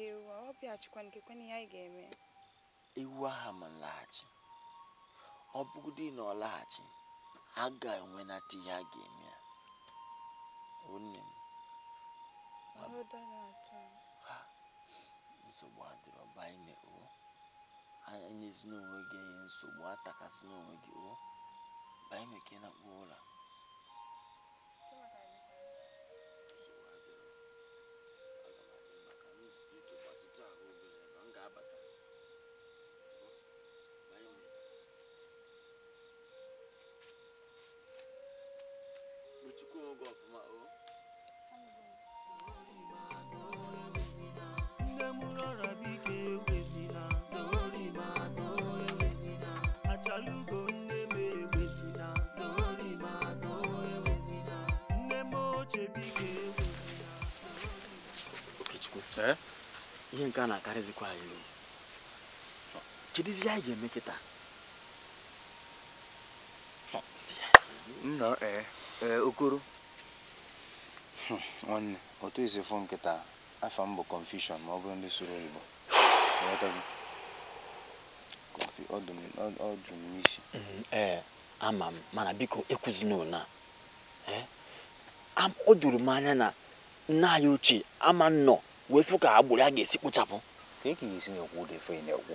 nke ewu a ọ bịaghachikwa nke kwenye ihe anyị ga-eme ewu aha ma nlaghachi ọ bụgodị na ọ laghachi a ga-enwenata ihe a ga-eme ya onye m nsogbu adịrọ ọba ime o anyị n'onwe gị enye nsogbu atakasị n'onwe gị ụ ba ime ka na-akpọ nke a na-akarịzikwa anyị uru kedụzi anyị ga-eme kịta nna ee eh, eh, okoro nwanne hmm, otu isi fụ nkịta afọ m bụ ma ọ bụrụ ndị soro oyibo ọ jụrụ isi ee ama m mana biko na ụna eh, o doro m anya na nna anyị ochie ama nnọọ wee fụ ka agbụrụ a ga-esi kpochapụ ka e ka esi na-ekwu ụda efe na-ekwu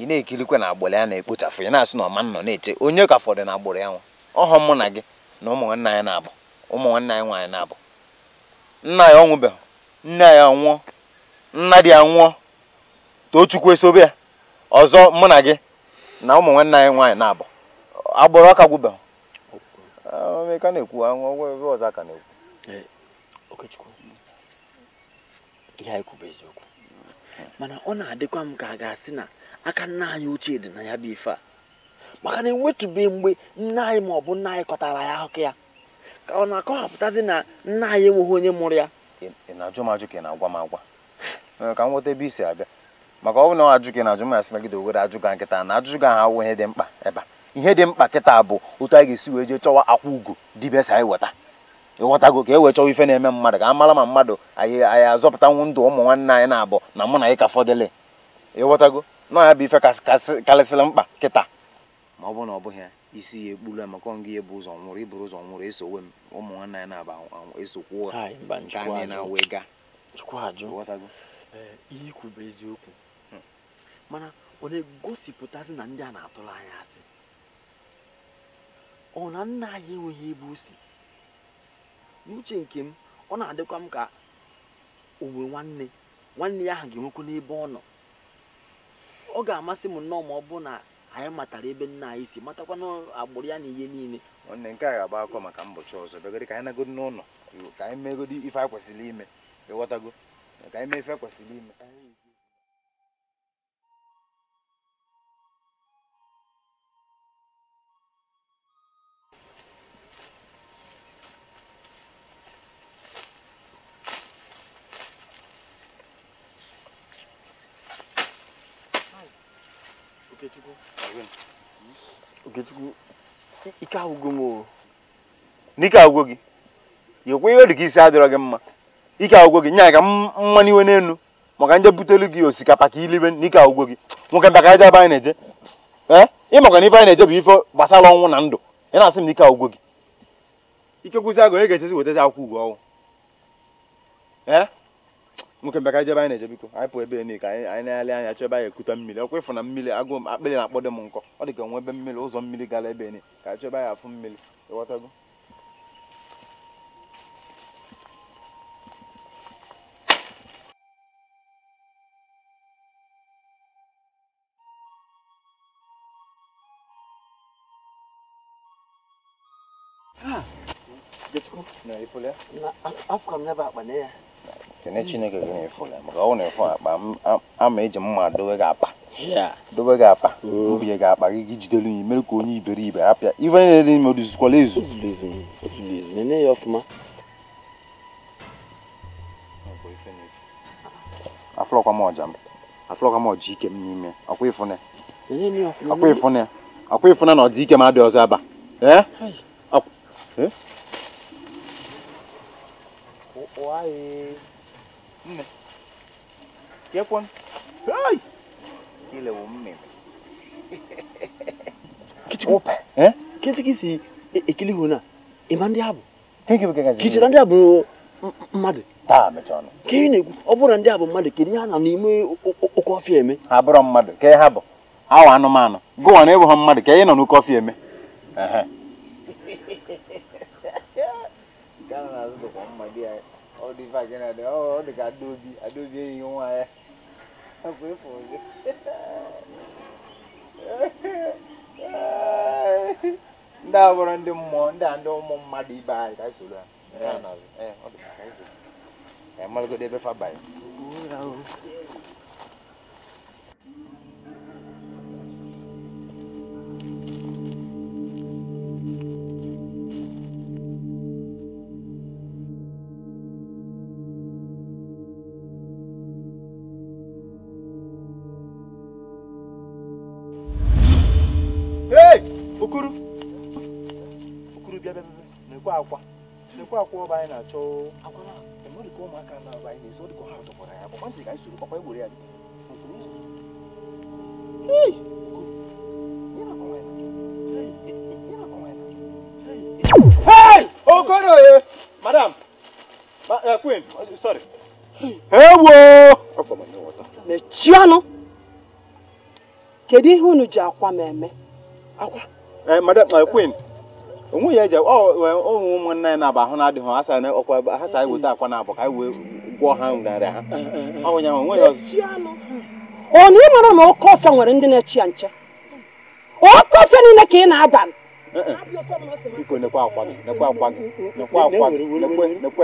ị na-ekirikwa na agbụrụ ya na-ekpochapụ ya na-asị na ọma nọ na-eche onye ka fọdụ na agbụrụ ya nwa ọhọ mụ na gị na ụmụ nwanne anyị na-abụ ụmụ nwanne anyị nwaanyị na-abụ nna ya ọ nwụbeghị nne ya nwụọ nna di ya nwụọ tochukwu esobe ya ọzọ mụ na gị na ụmụ nwanne anyị nwaanyị na-abụ agbụrụ ọka gwụbeghị ka na-ekwu ọgwụ ebe ọzọ aka na-ekwu okechukwu ihe anyị kwụ eziokwu mana ọ na-adịkwa m ka a ga-asị na aka nna anyị ochie dị na ya bụ ife a maka na ewetube mgbe nne anyị ma ọ bụ nna anyị kọtara ya ahụkụ ya ka ọ na-akọwapụtazi na nna anyị enweghị onye mụrụ ya na-ajụ m ajụ ka ị na-agwa m agwa ka m nweta ebe isi abịa maka ọ bụ na ọ ajụ ka ị na-ajụ m asị nagide owere ajụga nkịta na ajụjụ ga ahụ ihe dị mkpa ebe a ihe dị mkpa kịta bụ otu anyị ga-esi wee jee chọwa akwa ugo dibịa anyị weta ịghọtago ka e wee chọwa ife na-eme mmadụ ka a mara ma mmadụ anyị anyị azọpụtanwu ndụ ụmụ nwanne anyị na-abụ na mụ na ịka ka fọdụle ịghọtago na ya bụ ife karịsịrị mkpa kịta ma ọ bụrụ na ọ bụghị ya isi ya ekpuru a maka ọngị ya bụ ụzọ nwụrụ iburu ụzọ nwụrụ esowe m ụmụ nwanne anyị na-aba esokwu nke anyị na-awee ga ihe ikwu bụ eziokwu mana ọ na-egosipụtazi na ndị a na-atụrụ anya asị ọ na nna anyị enweghị ebe o si n'uche nke m ọ na-adịkwa m ka onwe nwanne nwanne ya ahụ ga enwekwu n'ebe ọ nọ ọ ga-amasị m nnọọ ma ọ bụ na anyị matara ebe nna anyị si matakwa na agbụrụ ya na ihe niile nwanne nke a ga-agba akọ maka mbọchị ọzọ bịagodi ka anyị nagodi n'ụlọ ka anyị ife kwesịrị ime ịghọtago ka anyị mee ife a kwesịrị ime Okechukwu ike agwụgo m n'ike agwụgo gị yekwe ihe ọ dị ka isi adịrọ gị mma ike agwụgo gị nya ka mma n'iwe n'elu maka nje butelu gị osikapa ka ilibe n'ike agwụgo gị nwoke mbịa ka anyị jebe anyị na-eje ee ị maka na ife anyị na-eje bụ ife gbasara ọnwụ na ndụ ị na-asị m n'ike agwụgo gị ike kwụsị agụ onye ga-echezi wetazi akwụkwọ ụgwọ ọnwụ ee nwoke bịa ka anyị jebe anyị na-eje biko anyị pụọ ebe niile ka anyị na-ele anya chọ ebe anyị ekuta mmiri ọkwa ịfụ na mmiri agụụ m akpịrị na-akpọdo m nkọ ọ dị ka onwe ebe mmiri ụzọ mmiri gara ebe niile ka anyị chọbe anyị afụ mmiri ịghọtago Afọ m ya bụ akpa na ya kene chineke gị na-efu ya maka ọ na-efu akpa ama eji mma dowe gị akpa dowe gị akpa mbinye gị akpa gị gị jidelu ya mere ka onye iberibe apịa ife niile dị ime oduzikwala ezu nene ya ọfụma afụlọkwa m ọja m afụlọkwa m ọja ike m n'ime ọkwa ịfụne ọkwa ịfụne ọkwa ịfụne na ọdịike m adị ọzọ aba ee Wae. Nne. Kepon. Hai. Kile umme. Kichikope. Eh? Kesi kisi ikili e, e huna. Imandi e habu. Thank you kakazi. Kichirandi habu mmadụ taa mechaọnụ ka ị na-ekwu ọ bụrụ ndị a bụ mmadụ kedu ihe ha na n'ime oke ọfịa eme ha bụrụ mmadụ ka ha bụ awa anụmanụ gụwa na ịbụ ha mmadụ ka ị nọ n'oke ọfịa eme ehe dị vajin na dị ọ dị ka adobi adobi eyi nwa ya akwa efu ụzọ ndị a eh. bụrụ ndị mmụọ ndị a ndị ụmụ mmadụ ibe anyị ka anyị soro ha eh, eh, ọ dị ka anyị soro ha mmalụgodo ebe fa banyere akwa akwa ọba anyị na-achọ akwara mmadụ ka ụmụaka na-aba anyị na-eso dịka ha tọkwara ya bụ nwantị anyị soro papa egboro ya dị Hey! Madam! Eh, Queen, sorry. Ewo! Akwa m nwata. Mechianụ! Kedu ihe unu ji akwa m eme? Akwa? madam, eh, Queen. onwe ya eje e, onwe ụmụnne ya na-aba ahụ na-adịghị ha ọkwa ha sa mm-hmm. weta akwa na abụ ka wee gwọọ ha narị ha mm-hmm. ọnwụnyanwụ onwe ya ọzọ ọ na ị mara na oke nwere ndị na-echi ya nche oke niile ka ị na-aba biko akwa gị akwa gị akwa gị nekwe nekwe nnukwu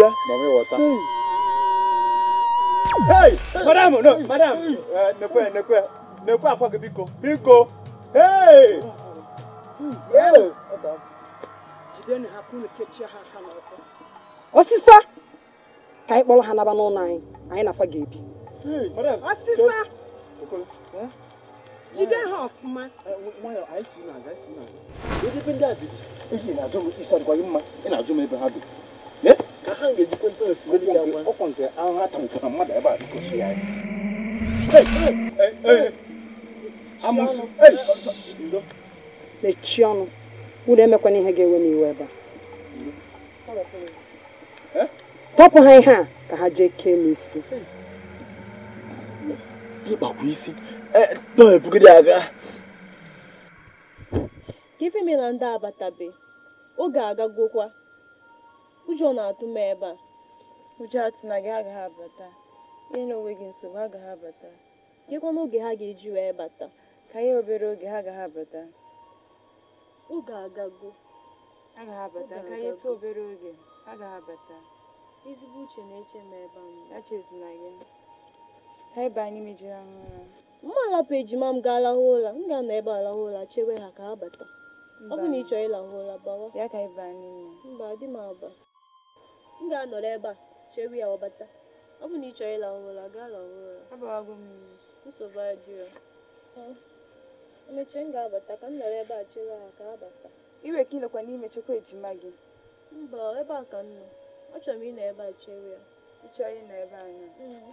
ya Hey, madam, no, madam. Eh, nekwe, nekwe. Nekwe akwa gị biko. Biko. Hey. Osisa. Ka anyị kpọrọ ha naba n'ụlọ anyị. Anyị na ga-ebi. Jide ha ọfụma. gị mma. Ị na-ajụ m ebe ha ka ha ga-ejikwa ntọefuedị ya gwa ọkwa nke ahụ ha tụtụrụ mmadụ ebe a dịkọsi ya amụsụ mechie ọnụ ụlọ emekwana ihe ga-ewe n'iwe iwe ebe a tọpụ ha ihe a ka ha jee kee m isi ịkpakwa isi ebugide aga ka ife mere na ndị abatabe oge agagokwa ụjọ na-atụ m ebe a ụjọ atụ na gị agaghị abata ihe na onwe gị nsogbu agaghị abata nyekwa n'oge ha ga-eji wee bata ka ihe obere oge ha agaghị abata oge agago agaghị abata ka ihe tụ obere oge agaghị abata ezigbo uche na-eche m ebe a echezina gị ha ebe anyị mejiri ahụ ụra mma alapụ ejima m gaa alahụ ụra m ga-anọ ebe alahụ ụra chewe ha ka ha bata ọ bụ na ị chọrọ ịlahụ ụra bawa ya ka ịba anyị mba adị m aba m ga-anọrọ ebe a chere ya ọbata ọ bụ na ị chọrọ ịla ọhụrụ gaa la ụra nsogbu adịrọ emechi m ga-abata ka m nọrọ ebe a chere ha ka abata. iwe ka ịnọkwa n'ime chekwa ejima gị mba ebe a ka m nọ achọrọ m ịnọ ebe a chere ya ị chọrọ ịnọ ebe anya mm.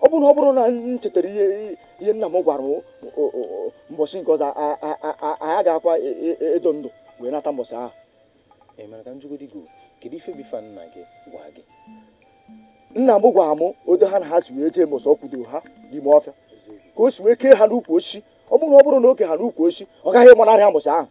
ọ bụrụ na ọ bụrụ na m chetara ihe nna m gwara m mbọsị nke ọzọ anyị ga-akwa e, e, e, edo ndụ wee nata mbọsị ahụ emere ka njugodi go kedu ife bifa nna gị gwa gị nna m gwara m odo ha na ha si wee jee mbọsị ọ ha n'ime ọfịa ka o si wee kee ha n'ukwu osisi ọ bụrụ na ọ bụrụ na oke ha n'ukwu osisi ọ gaghị ịgbanarị ha mbọsị ahụ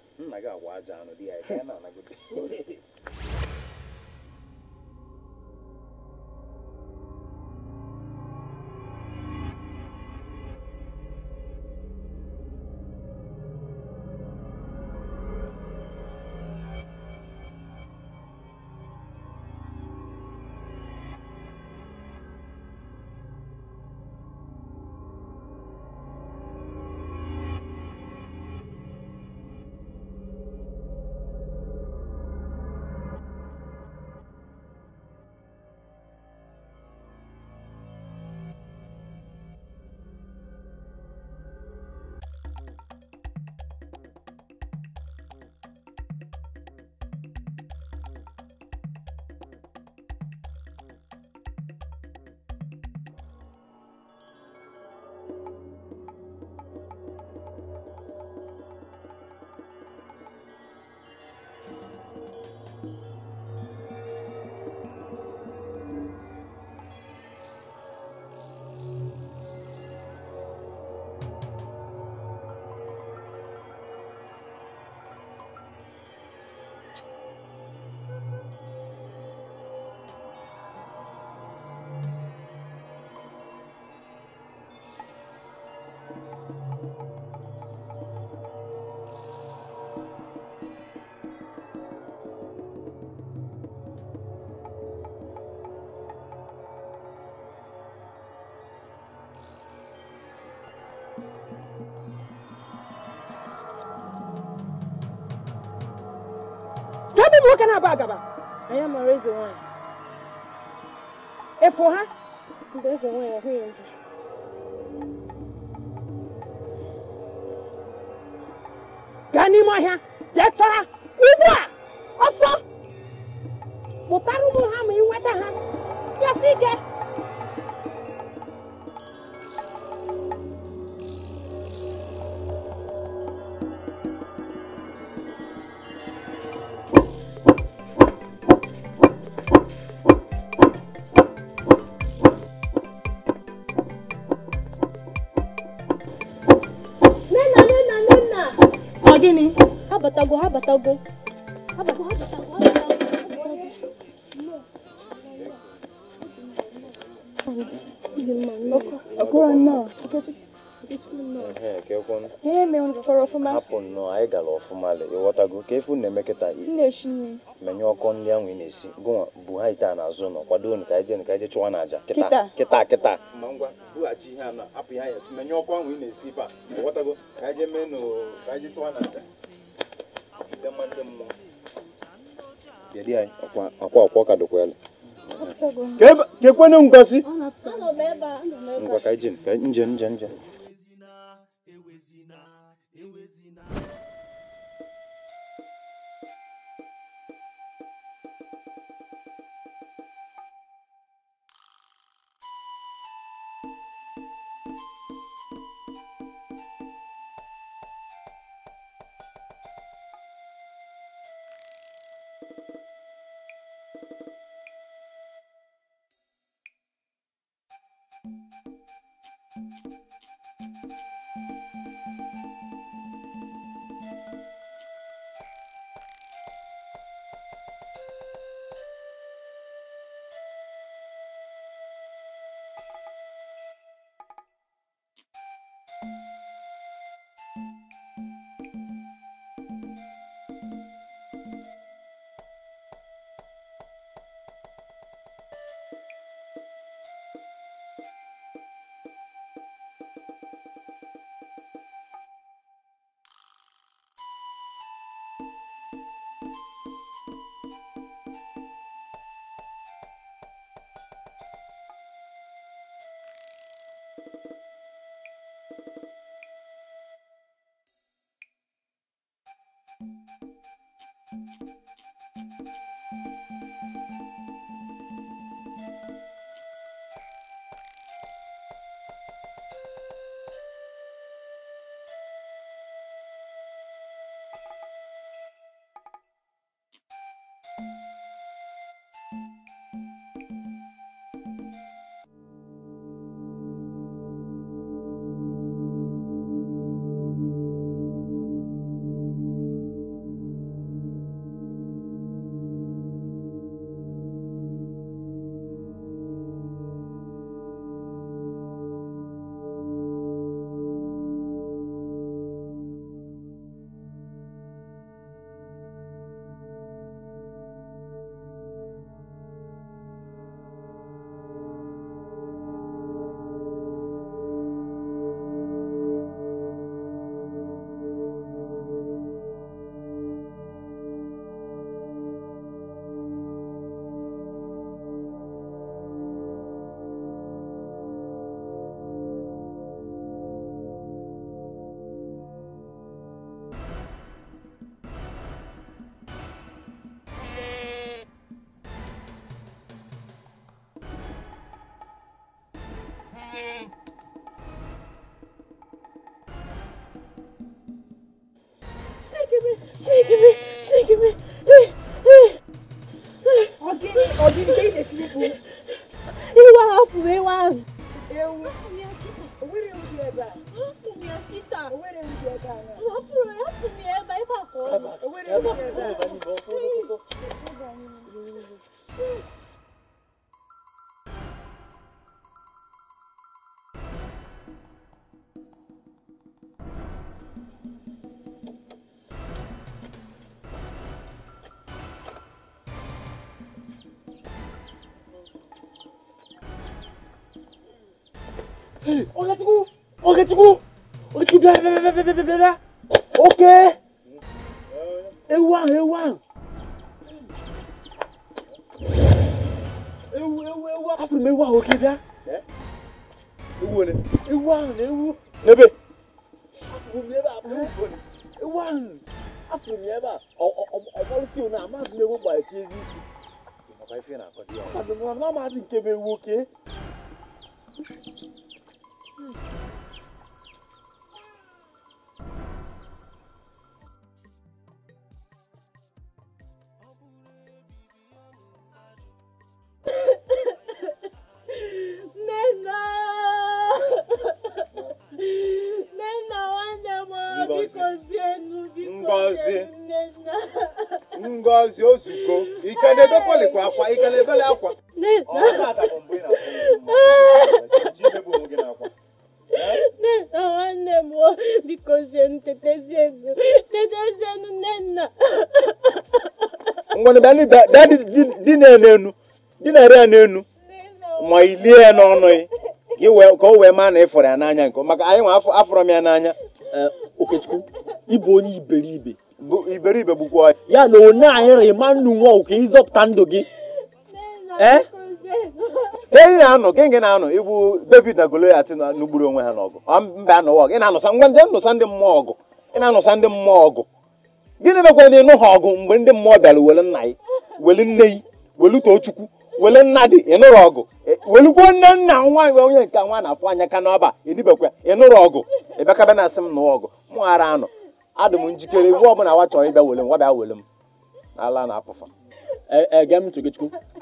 ebe m nwoke na-aba agaba anya mara eze nwaanyị efu ha mgbe eze nwaanyị ahụghị m gaa n'ime ọhịa jee chọọ ha ugbu a ọsọ kpụtara ụmụ ha ma ị nweta ha yasị ike ọgụ ihe mere ọfụma hapụ nnọọ anyị gara ọfụma ịghọtago ka efu na-eme kịta menye ọkọ ndị ahụ ị na-esi gụnwa bụ ha ite a nọ kwado unu ije anyị chụwa n'aja kịta kịta di akwọ ka Sneaking me! Sneaking me! 得得得得 dịna-enu dịnara ya n'enu ma ilie ya n'ọnụ ya ka o wee maa na ị ịfọrọ ya n'anya nke maka anyị nwa afọrọ m ya n'anya okechukwu ịbụ onye iberibe iberibe bụkwa ya na one anyịrị ma nnu nwa ụka ịzọpụta ndụ gị enyi na-anọ gị gị na-anọ ịbụ david na goliat n'ugburu onwe ha n'ọgụ mba anọwa ọgụ na-anụsa ngwa nje nụsa ndị mmụọ ọgụ ị na-anụsa ndị mmụọ ọgụ gịnị mekwa na ịnụ ha ọgụ mgbe ndị mmụọ bịara uwere nna gị weli nne yi welu too chukwu wele nna dị ịnụrụ ọgụ e, welugbo nne nna nwaanyị onye nke nwa na-afụ anya ka n'ọba enibekwa ịnụrụ ọgụ ịbịakaba na asị m nụọ ọgụ mụ ghara anọ adị m njikere iwu ọbụla nwa chọrọ ịbịa wele m nwa wele m ala na apụfa ege e, m ntụ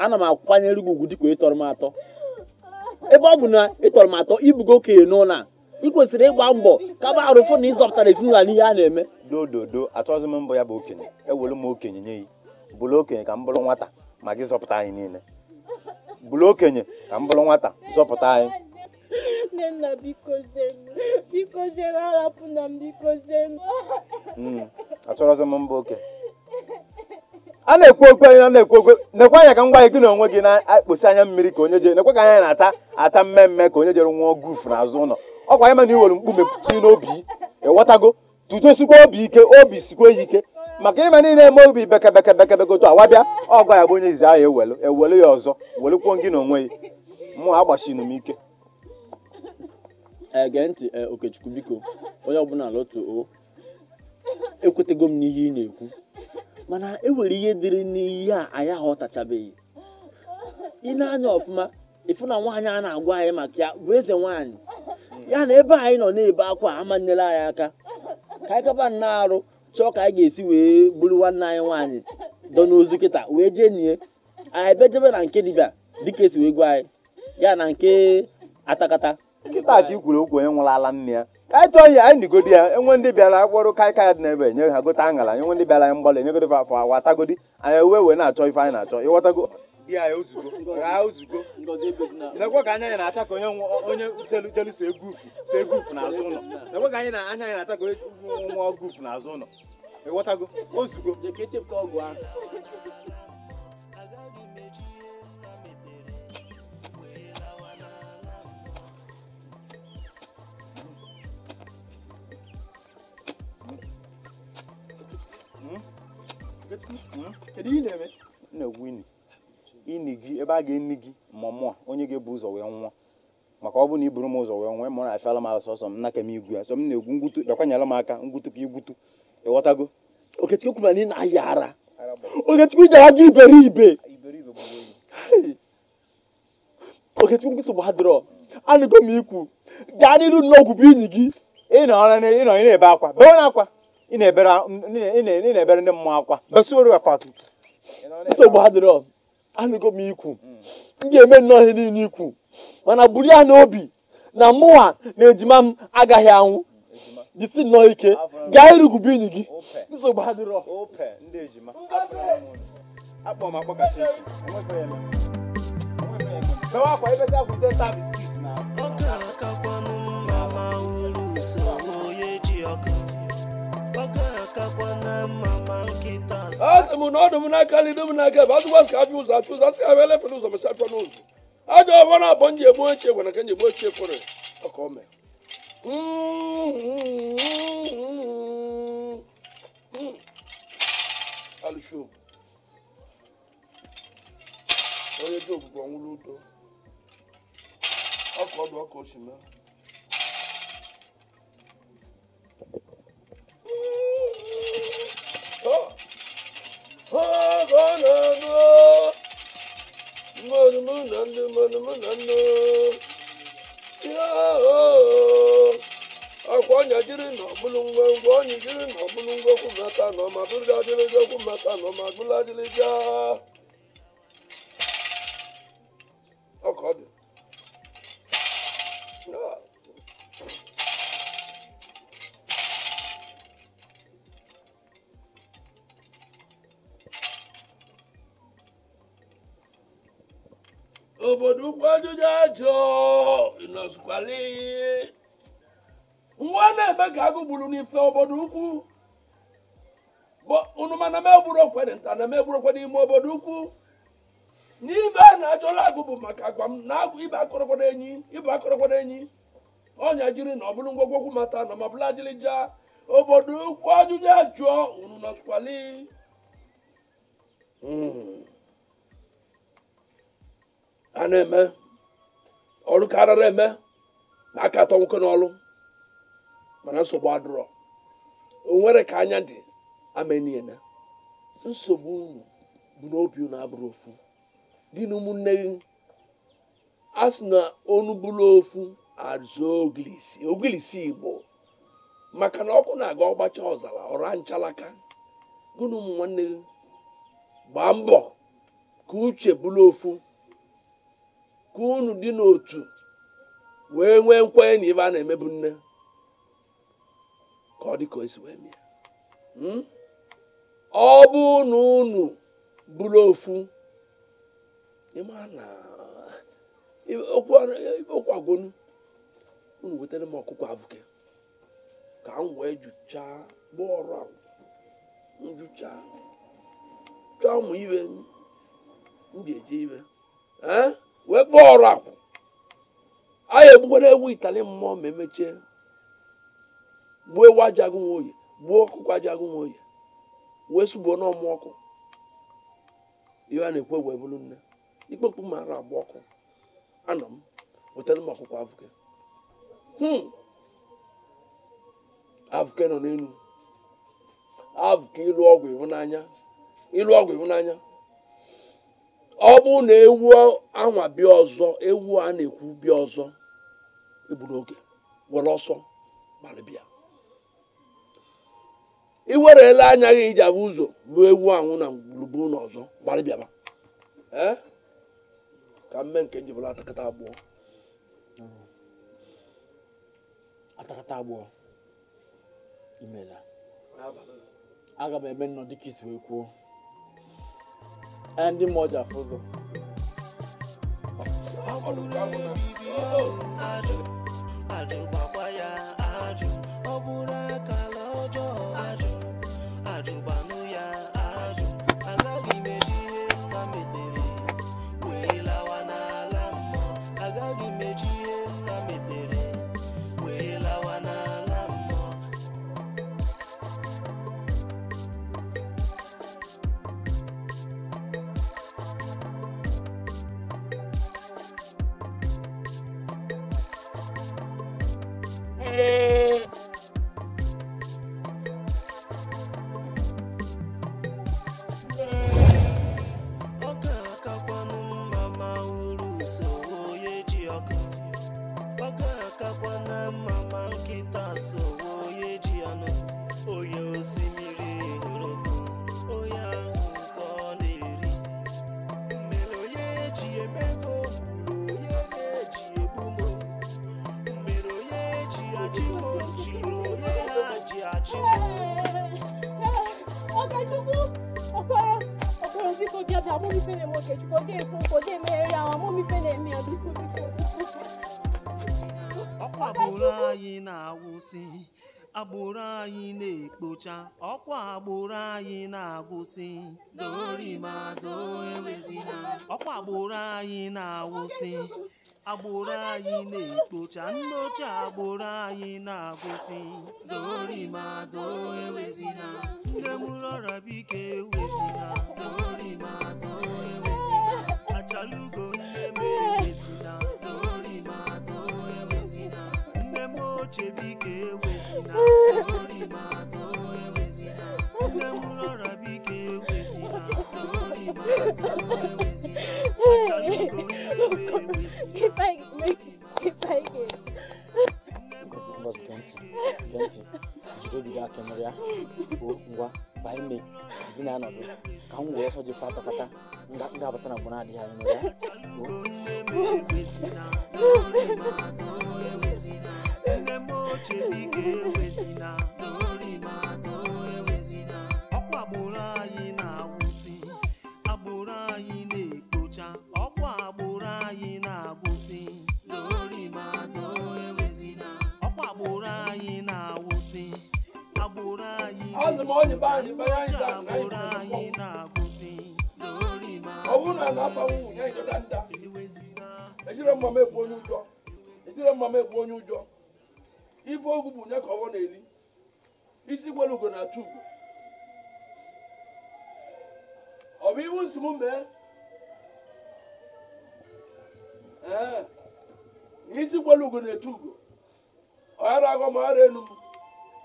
ana m akwanyere gị ugwu dịka ịtọrọ m atọ ebe ọ bụ na ịtọrọ m atọ ibugo okenye n'ụlọ a ị kwesịrị ịgba mbọ ka arụfụ na ịzọpụtara ezinụlọ n'ihe a na-eme dododo achọghịzị m mbọ ya bụ okenye ewere m okenye nye ya bụrụ okenye ka m bụrụ nwata ma gị zọpụta anyị niile bụrụ okenye ka m bụrụ nwata zọpụta anyị hmm, achọrọzi m mba oke a na-ekwu okwu anyị na-ekwu okwu nekwe anya ka m gwa gị na onwe gị na-akpọsi anya mmiri ka onye jere nekwe ka anya na-ata ata mmemme ka onye jere nwụọ gufu n'azụ ụlọ ọkwa anyị mana iwere mkpu mepụta n'obi ịghọtago tuto sikwa obi ike obi sikwa ya ike maka ime niile eme obi bekebeke bekebegoto awabịa ọgụ ya bụ onye izi ahụ ewelu ewelu ya ọzọ welekwuo gị na onwe gị mụ agbachinu m ike ege ntị e, okechukwu biko onye ọbụla lotu o ekwetego m n'ihe ị na-ekwu mana enwere ihe dịrị n'ihe a anyị aghọtachabeghị ị na-anya ọfụma ịfụ na nwaanyị a na-agwa anyị maka ya bụ eze nwaanyị ya na ebe anyị nọ na-ebe akwa amanyela anyị aka ka anyị kaba na-arụ chọọ ka anyị ga-esi wee buru nwanne anyị nwaanyị dọ n'ozu kịta wee jee nie anyị bejebe na nke dibịa dịka esi wee gwa anyị ya na nke atakata nkịta ka ikwuru okwu onye nwụrụ ala nne ya ka anyị chọọ anyị nigodi ya enwe ndị bịara akpọrọ kaikai dị n'ebe nye ha gote aṅara enwe ndị bịara anyị mgbalị enyegodi afọ awa atagodi anyị uwe wee na-achọ ife anyị na-achọ ịghọtago ya ya ozugbo raa ozugbo nekwe ka anya anyị na-acha ka onye jelu jelu so egwu ufu so egwu ufu n'azụ ụlọ nekwe ka anya anyị na-acha ka onye nwa ọgụ ufu n'azụ ụlọ ịghọtago ozugo kedu ị na-eme na-egwu ini ini gị ebe a ga-eni gị ma onye ga-ebu ụzọ wee nwụọ maka ọ bụ na iburu m ụzọ wee nwee m na-afịala m ala sọsọ m naka m igwu ya na-egwu aka ngwutu igwutu ịghọtago okechukwu kwuru na ị na-aya ara okechukwu jara gị iberibe okechukwu nsogbu ha dịrọ anụgo m ikwu gaa n'iru n'ọgwụ bụ inyi gị ị nọ na-ebe akwa bewe na akwa ị na-ebere ndị mmụọ akwa besoro akwa nsogbu ha dịrọ anụgo m ikwu m ga-eme nnọọ ihe niile ikwu mana buru ya n'obi na mụwa na ejima m agaghị anwụ jisi nnọọ ike gaa irugube enyi gị nsogbu adịrọ ọkarakakwanụ mma ma ji m na ọdụ m n'aka lido m n'aka bụ azụgwa sị ka afịa ụzọ afịa ụzọ asị ka abịa elefere ụzọ mecha afịa n'ụzọ ajọ ọbụla abọ nji egbu ochie gwara ka nji egbu ochie kwere Al şu. Oye tó gbogbo àwọn olóòótọ́. Ọkọ̀ ọdún ọkọ̀ oṣù mẹ́rin. Oh, oh, no, no. Mọ̀nùmọ̀nà ni mọ̀nùmọ̀nà ni. ọ̀bùlùngbò ńgbò nìjírí ọ̀bùlùngbò kùmẹ́ta nọ màbúrúdá délé dé kùmẹ́ta nọ màgbúlá délé já. gburu n'ife obodo ukwu unu mana m egburu okwere nta na m egburu okwe n'ime obodo ukwu n'ibe a na-ajọla agụ bụ maka agwa m na agụ ibe akọrọkwara enyi ibe akọrọkwara enyi ọnya jiri na ọbụrụ bụrụ ngwogwokwu mata na ma bụla jilija obodo ukwu ajụjụ ajụọ unu na skwali hmm. a na-eme ọrụ karịrị eme na aka atọ nwoke n'ọlụ mana nsogbu adụrọ onwere ka anya dị ameniena nsogbu unu bụ n'obi unu abụrụ ofu dị na ụmụnne gị a na onu ofu azụ ogilisi ogilisi igbo maka na ọkụ na-aga ọgbacha ọzara ọra nchalaka gị nwanne gị gbaa mbọ ka uche bụrụ ofu ka unu dị n'otu wee nwee nkwenye na ibe a na-emebu nne ka ọ dị ka o si wee mịa hmm? ọ bụ na unu bụrụ ofu ịma na okwu agwonu unu wetara m ọkụkọ avụke ka m wee jụchaa ọrụ a njụcha chọọ ụmụ ibe m ji eje ibe wee kpọọ ọrụ akwụ anyị egbukwana egwu itali mmụọ ma emechie gbuo ewu aja agụ nwoye gbuo ọkụkọ aja agụ nwoye wee sụgbuo n'ọmụ ọkụ ihe a na-ekwu egwu ebulu nne ikpe mkpu mara agba ọkụ anọ m wetara m ọkụkọ avụke hmm. avụke nọ n'elu avụke ịlụ ọgwụ ịhụnanya ịlụ ọgwụ ịhụnanya ọ bụrụ na ewu anwa bịa ọzọ ewu a na-ekwu bịa ọzọ egburu oge were ọsọ gbalịbịa i werela anya gị iji abụ ụzọ bụ ewu anwụ na gburugburu na ọzọ gbarịbịaba ka mme nke njibụla atakata abụọ atakata abụọ aga m eme nnọ dịka isi wee kwuo ndị mmụọ ji afụ ụzọ na-agwụsị ọkwa agbụrụ anyị na-agwụsị agbụrụ anyị na-ekpocha nne ochie agbụrụ anyị na-agwụsị nne mụrụ ọrịa bike ewezina achalugo nne m na, nne m ochie bike na. keep like, make, keep like it. Ngozi, Ngozi, gee ntị, gee ntị, ọkwa agbụrụ anyị na-agwụsị agbụrụ anyị na-ekpocha ọkwa agbụrụ anyị na-agwụsị ọkwa agbụrụ anyị na-agwụsị agbụrụ anyị na-ekpocha agbụrụ anyị na-agwụsị ọ na na-aba nwụ ya nyere nda ejire mmam onye ụjọ ejire mmam ekwu onye ụjọ ife ogwu bụ nye ka ọwọ na-eli isi gwere ugo na-atụ ugo ọ bụ iwu nsogbu mee ee n'isi kwelu ugo na-etu ugo ọghara agọ ma ọghara enu m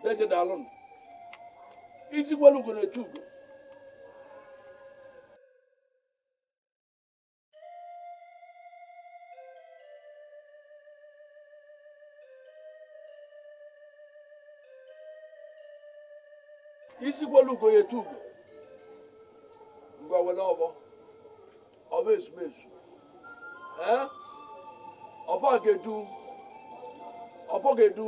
na-ejedalụ m isi kwelu ugo na-etu ugo isi kwelu ugo ya etu ugo nwere ọbọ ọba ezumezu ọfọ ga-edu ọfọ ga-edu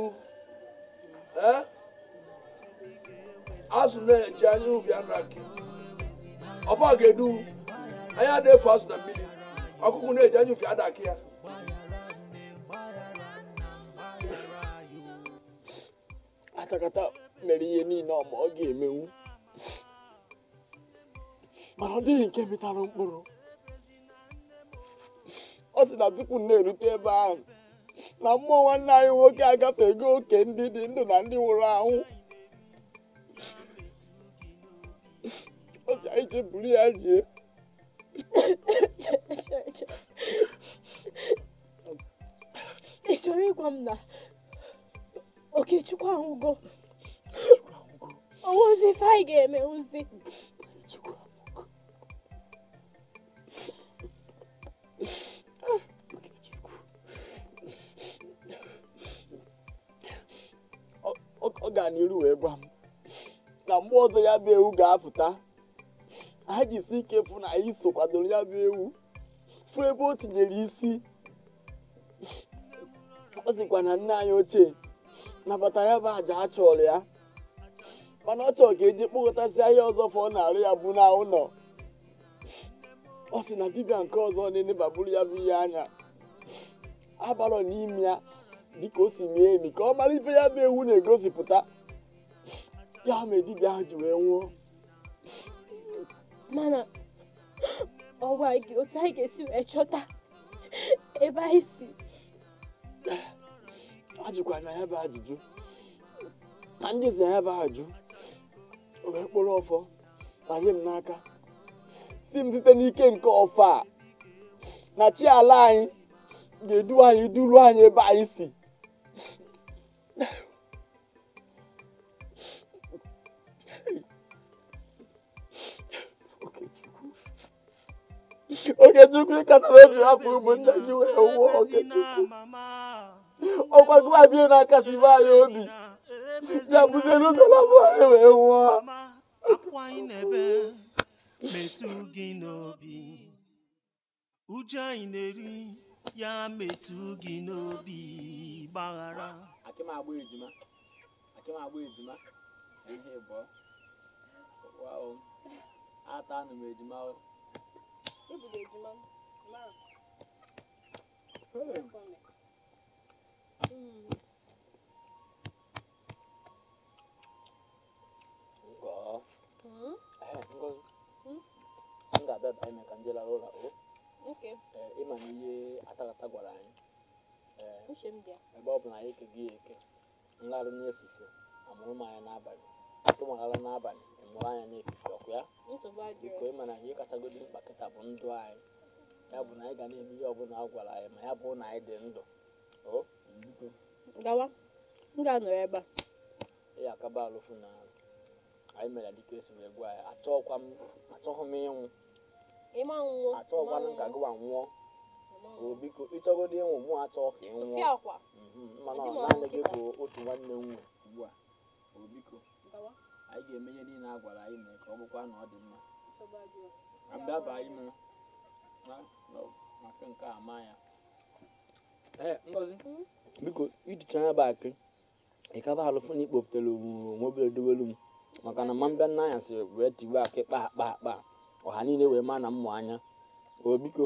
azụ na-eji anya ubi anụ aki ọfọ ga-edu anya na-efu azụ na mmiri ọkụkụ na-eji anya ubi aki ya atakata mere ihe niile mana ọ nke mịtara mkpụrụ ọ sị na tupu na-erute ebe ahụ na mmụọ nwanne anyị nwoke agafego oke ndị dị ndụ na ndị nwụrụ anwụ ọ sị anyị buru ya jee ị chọrọ ịgwa m na Okechukwu anwụgo ọ ga-eme gaa n'iru wee gwa m na mgbe ọzọ ya bụ ewu ga-apụta anyị jisi ike fụ na anyị so kwadoro ya bụ ewu fụ ebe o tinyere isi ọ sịkwa na nne anyị ochie nabata ya bụ àjà a chọrọ ya mana ọ chọrọ ka eji kpọkọtasị ahịa ọzọ fọ ọ na-arụ ya bụ na ụlọ ọ sị na dibịa nke ọzọ na-enebaburu ya bụ ihe anya abalọ n'ime ya dị ka o si mee emi ka ọ mara ife ya bụ ewu na-egosipụta ya ma dibịa ahụ ji wee nwụọ mana ọwa gị otu anyị ga-esi wee chọta ebe anyị si ajụkwa na ya bụ ajụjụ na ndị zi ya bụ ajụ wee kpụrụ ọfọ na m n'aka si m site n'ike nke ọfọ na chi ala anyị ga-edu anyị duru anyị ebe anyị si No. Oge Chukwu katara na afọ ugbo Naijiria ụwa Oge Chukwu. Ọkwa gụwa bie n'aka si be anyị obi. Si abụzie n'ụzọ n'afọ anyị wee nwụọ. Akwụ anyị n'ebe metụ gị n'obi. Uju anyị na-eri ya metụ gị n'obi gbaghara. akị m agba ejima akị m agba ejima ihe ịbọ wow ata anụ m ejima o ebudo ejima mara hmm? hmm? m ga-abịa banye ka ndị lara ụlọ ịma na ihe atakata gwara anyị uche m bịa ebe ọ bụ na anyị keghị ya eke nlarụ n'efufe amụrụ m anya n'abalị tụmaghala n'abalị ịmụrụ anya n'efufe ọkụ ya biko ịma na ihe kachagodi mkpa kịta bụ ndụ anyị ya bụ na anyị ga na-eme ihe ọbụla a gwara anyị ma ya bụ na anyị dị ndụ gawa m ga-anọrọ ebe a ị akaba alụfụ na anyị mere dịka esi wee gwa ya achọghị m ịnwụ achọghịkwanụ ka gụwa nwụọ biko ịchọgodo ịnwụ mụ achọ ka ị nwụọ mhm, mana naanị gị bụ otu nwanne nwe ugbu a biko anyị ga eme ihe niile a gwara anyị mee ka ọ bụkwa na ọ dị mma abịaba ime maka nke a ma ya ngozi hmm? biko ijicha anya bụ akị ịkaba alụfụ na ikpopụtara onwebere dowelu m maka na ma mbịa nna anya sịrị wee tigbe akị kpa akpa akpa ọha niile wee ma na mmụ anya biko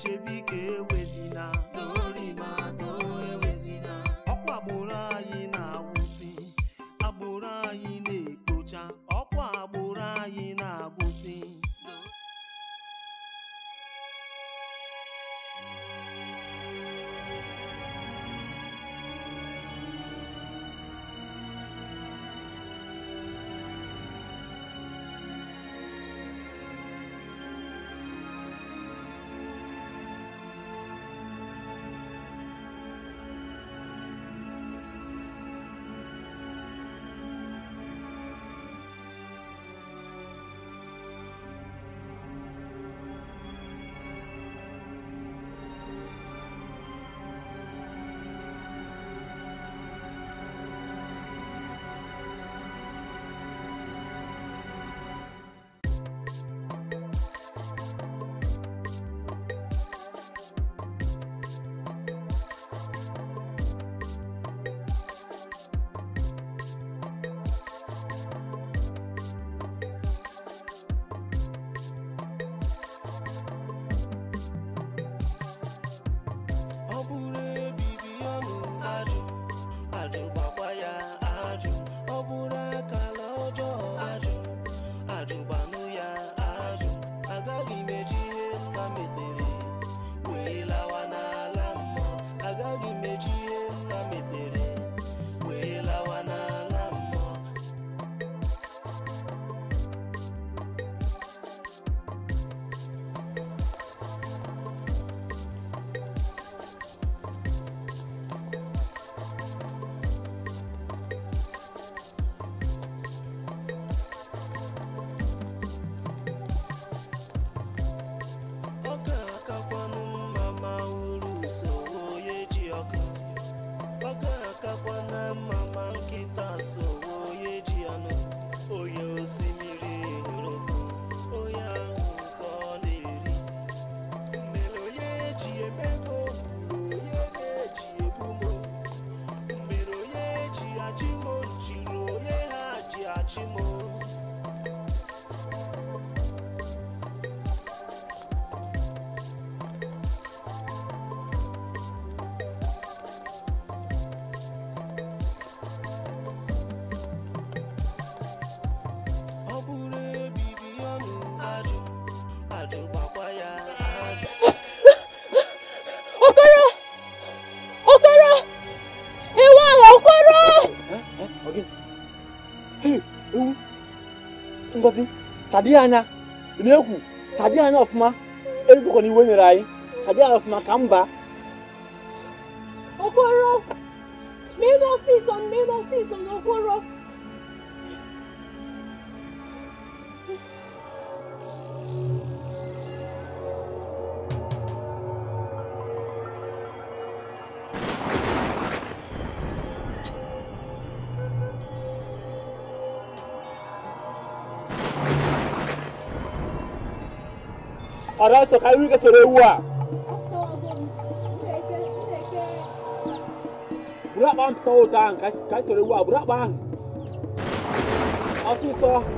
chebe ike ewezina Chadi anya na-ekwu chadi anya ọfụma erutụkwa na iwe nyere anyị chadi anya ọfụma ka mba adesso che lui che se bang so tang kai kai se ne bang asu so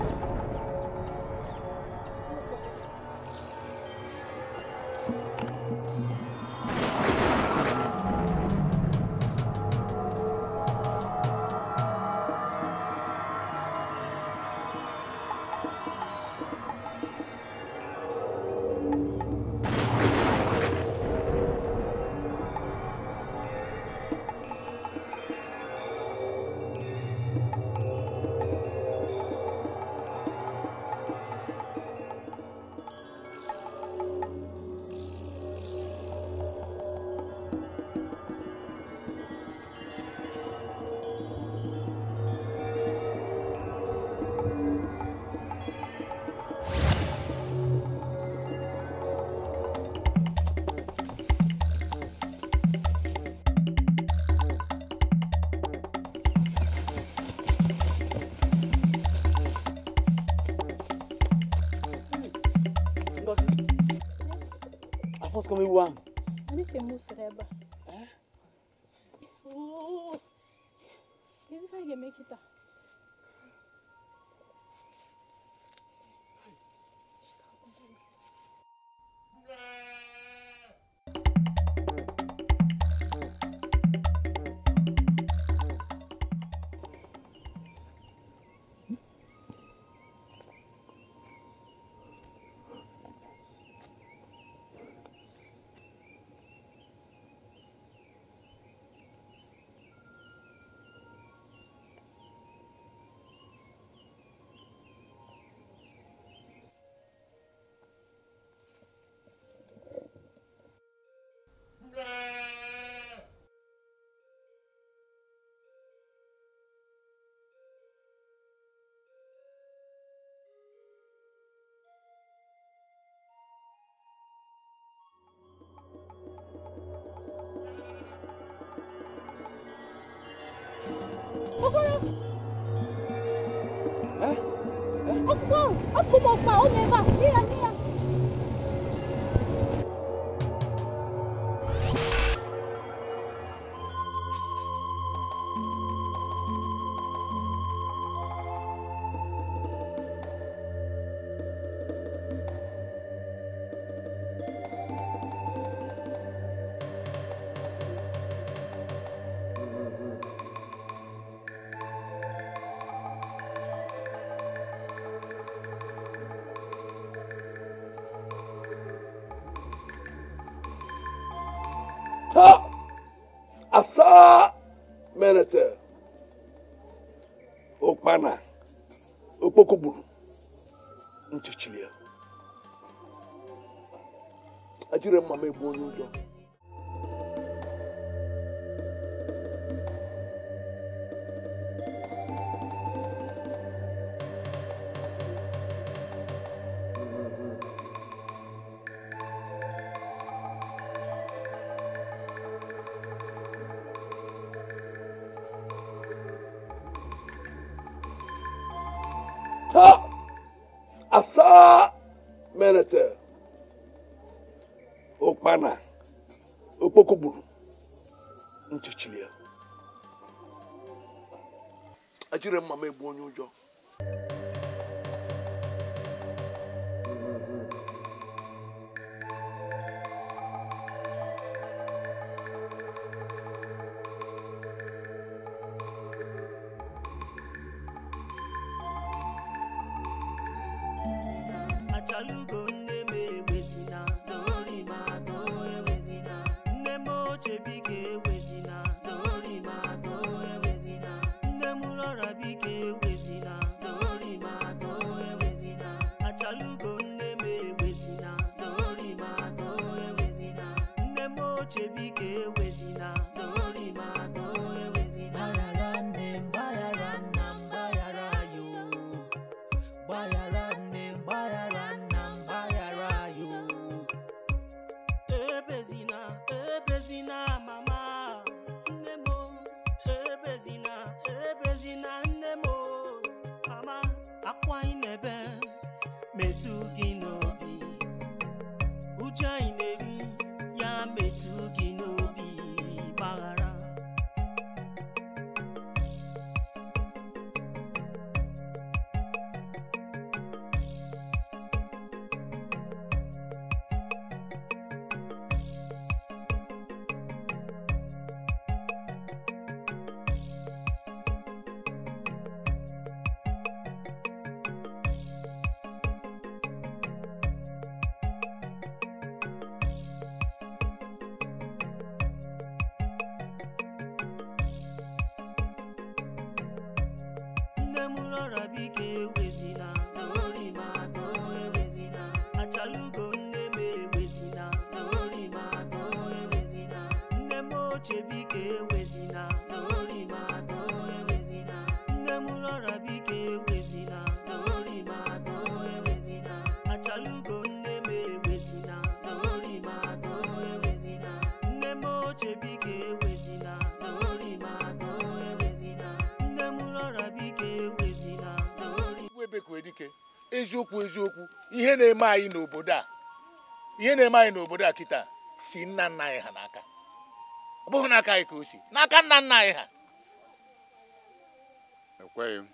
ser é Reba. kú mo pa ó lè sa merete ụkpana okpoko gburu ya a mma m egbu onye ụjọ jire mama eziokwu eziokwu ihe na-eme anyị n'obodo a ihe na-eme anyị n'obodo a kịta si nna nna anyị ha n'aka ọ bụghị n'aka anyị ka o si n'aka nna nna anyị ha ekweghị m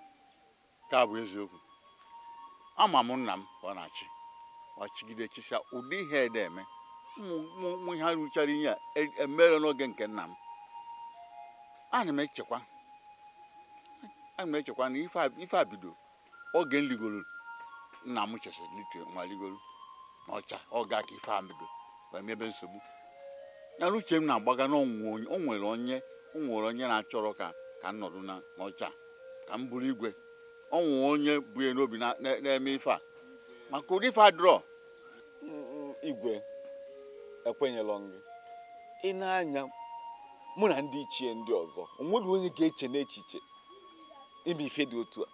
nke a bụ eziokwu ama m nna m ọ na-achị ọchịgide chịsa ụdị ihe ede eme ụmụ ihe rụchara ihe a emere e n'oge nke nna m ana m echekwa ana m echekwa na ife a bido oge m nna m chesịrị n'ike nwaligolu n'ọcha ọ ga ka ife amigo wee mebe nsogbu yana uche m na-agbaga na o nwere onye o nwere onye na-achọrọ ka ka m nọrọ n'ọcha ka m bụrụ igwe ọnwụ onye bụ ya n'obi na-eme ife a maka ụdị ife adrọ igwe ekwenyelọ gị ị na-anya mụ na ndị ichie ndị ọzọ onweghị onye ga-eche n'echiche ime ife dị otu a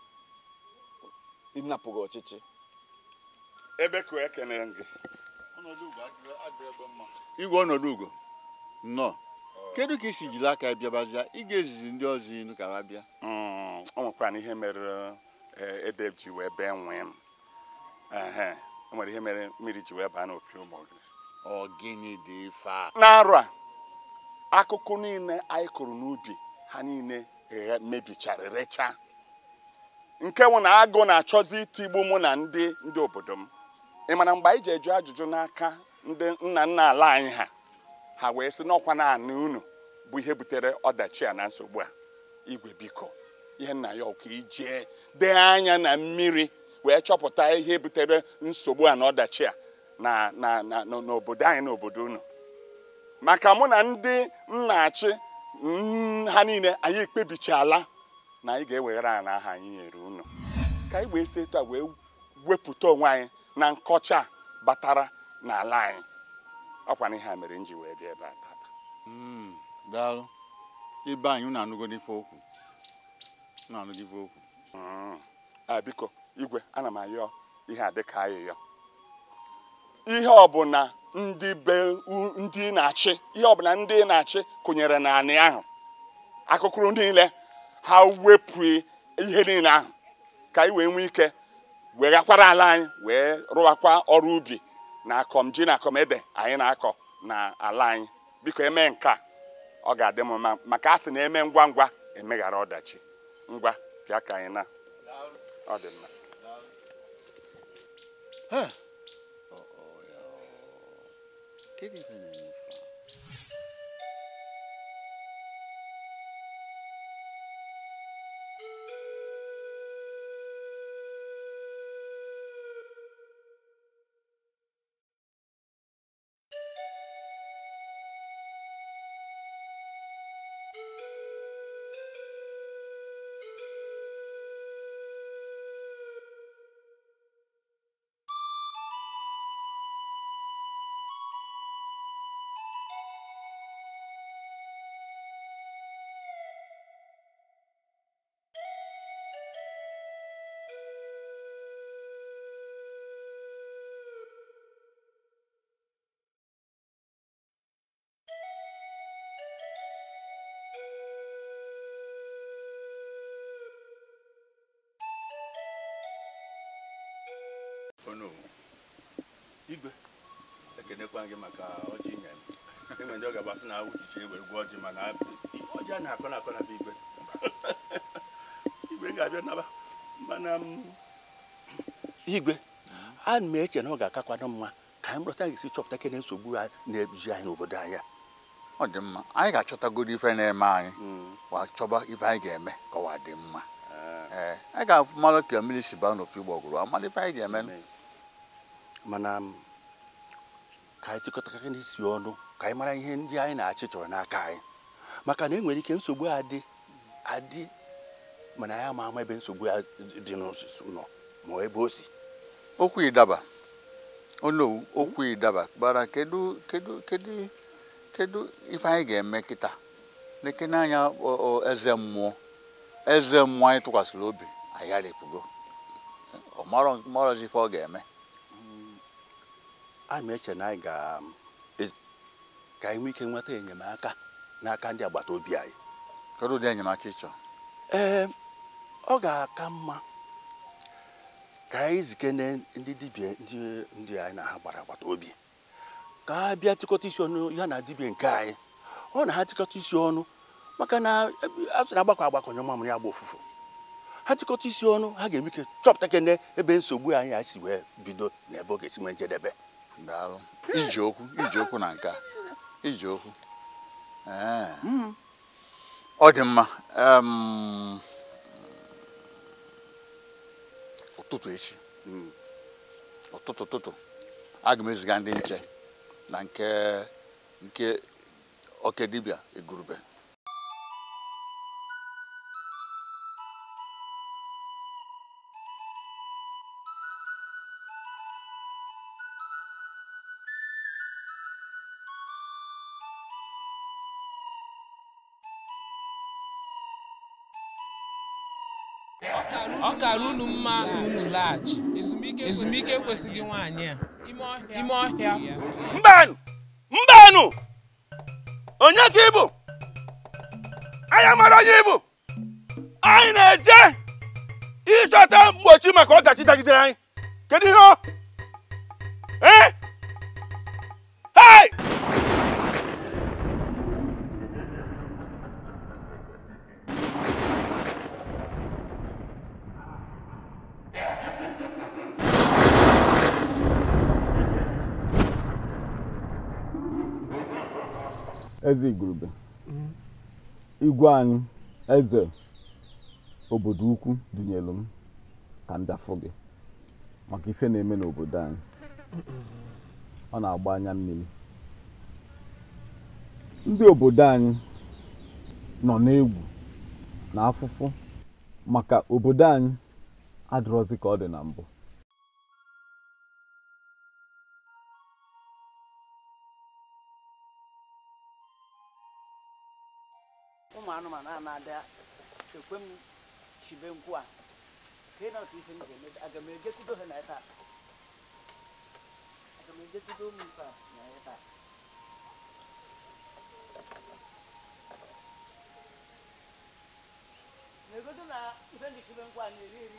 ịnapụghị ọchịchị ebe ka ekene gị igwe ọnọdụ ugo nnọọ kedu ka isi jiri aka bịabazia ị ga-ezizi ndị ọzọ inu ka ha bịa ọ hmm, nwekwara ihe mere ede eh, ji wee bee nwee m o nwere ihe mere mmiri ji wee baa n'opi ụmụ gị ọgịnị dị ife a n'arụ a akụkụ niile anyị kụrụ n'ubi ha niile eh, mebichara rechaa nke nwụ na agụ na-achọzi itigbu mụ na ndị ndị obodo m ị mana mgbe anyị ji eju ajụjụ n'aka ndị nna nna ala anyị ha ha wee sị n'ọkwa naanị unu bụ ihe butere ọdachi a na nsogbu a igwe biko ihe nna ya ọkụ ijee dee anya na mmiri wee chọpụta ihe butere nsogbu a na ọdachi a na na na n'obodo anyị na obodo unu maka mụ na ndị nna-achị mm, ha niile anyị ekpebichala na anyị ga-eweghara ala aha anyị nyere unu ka anyị wee si etu a wee wepụta onwe anyị na nkọcha batara n'ala anyị ọkwa na ihe a mere nji wee bịa ebe a tata hmm, daalụ ibe anyị unu anụgo ife okwu unu anụgo ife okwu hmm. a biko igwe ana m ayọ ihe a dịka ayịyọ ihe ọbụla ndị be ndị na-achị ihe ọbụla ndị na-achị kụnyere n'anị ahụ akụkụrụ niile ha wepụ ihe niile ahụ ka anyị wee nwee ike weghakwara ala anyị wee rụwakwa ọrụ ubi na akọm ji na akọm ebe anyị na-akọ na ala anyị biko eme nke ọ ga-adị m mma maka a sị na eme ngwa ngwa emeghara ọdachi ngwa bịa ka anyị na ọ dị mma na-akọ na-akọ na igwe igwe ga-abịa naba mana um, igwe ana m eche na ọ ga-akakwado mma ka anyị bụrụta ga-esi chọpụta kene nsogbu a na-eji anyị n'obodo anya ọ dị mma anyị ga-achọtagoro ife na-eme anyị hmm. wa chọba ife anyị ga-eme ka ọwa dị mma ah. eh, anyị ga-afụ mara ka mmiri si baa n'opi gbọgụrụ amara ife anyị ga-eme mana um, ka anyị chịkọtakarị n'isi ọnụ ka anyị mara ihe ndị anyị na-achị chọrọ n'aka anyị maka na enwere ike nsogbu adị adị mana ya ma ama ebe nsogbu ya dị n'osisi nọ ma ebe o si okwu ịdaba onowu okwu ịdaba gbara kedu kedu kedu kedu ife anyị ga-eme kịta lekene anya eze mmụọ eze mmụọ anyị tụkwasịrị obi agharịpụgo ọmarọzi ife ọ ga-eme anyị hmm, ma eche na anyị ga ka anyị nwee ike nweta enyemaka n'aka ndị agbata obi anyị kedu ụdị enyemaka ịchọ ee ọ ga-aka mma ka anyị zikene ndị dibia ndị anyị na ha gbara agbata obi ka a bịa tịkọta isi ọnụ ya na dibia nke anyị ọ na ha tịkọta isi ọnụ maka na a sị na agbakọ agbakọ nye mamụrụ ya gba ofufu ha tịkọta isi ọnụ ha ga-eme ike chọpụta kene ebe nsogbu anyị a si wee bido n'ebe ọ ga-esi nwee njedebe iji okwu iji okwu na nka iji okwu ọ dị mma ụtụtụ echi hmm. ụtụtụ ụtụtụ aga m eziga ndị nche na nke nke oke dibịa igurube mma laghachi ezumike ekwesịghị nwaanyị a ime ọhịa mbanụ mbanụ onye ka ịbụ anyị mara onye ịbụ anyị na-eje ịchọta mgbochi maka ọdachi dagidere anyị kedu ihe eze igurube igwe anyị eze obodo ukwu dunyelu m ka m gị maka ife na-eme n'obodo anyị ọ na-agba anya mmiri ndị obodo anyị nọ n'egwu na afụfụ maka obodo anyị adịrọzi ka ọ dị na mbụ ụmụ anụmanụ a na-ada ekwe m chibe nkwụ a ka ị na ife m ga-eme aga m ejekudo ha na ya taa aga m ife a na ya taa na-egodo na ife ndị chibe nkwụ a na-eri eri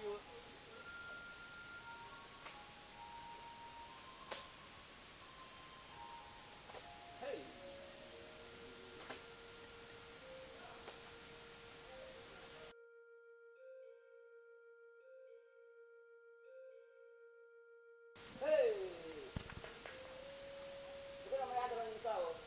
Udało.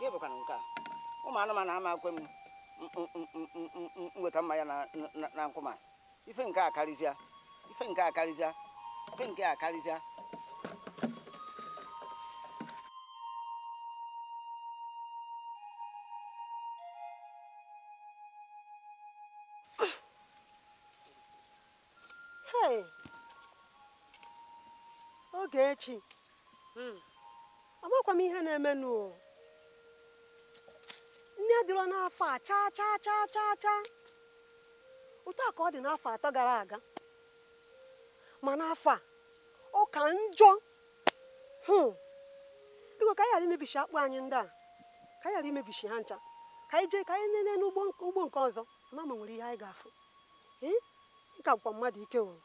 gị bụkwana nke a ụmụ anụmanụ ama akwe m mm, mm, mm, nweta mmanya na nkwụma ife nke a karịzịa ife nke a karịzịa ife nke a karịzịa oge echi hmm. amakwa m ihe na-emenụ anya dịrọ n'afọ a chaa chaa chaa chaa chaa otu a ka ọ dị n'afọ atọ gara aga ma n'afọ a ọ ka njọ biko hmm. ka anyị ghara imebisi akpụ anyị ndị a ka anyị ghara imebisi ha ncha ka anyị jee ka anyị nene n'ugbo nke ọzọ ma ma nwere ihe anyị ga-afụ ka bụkwa mmadụ ike wụrụ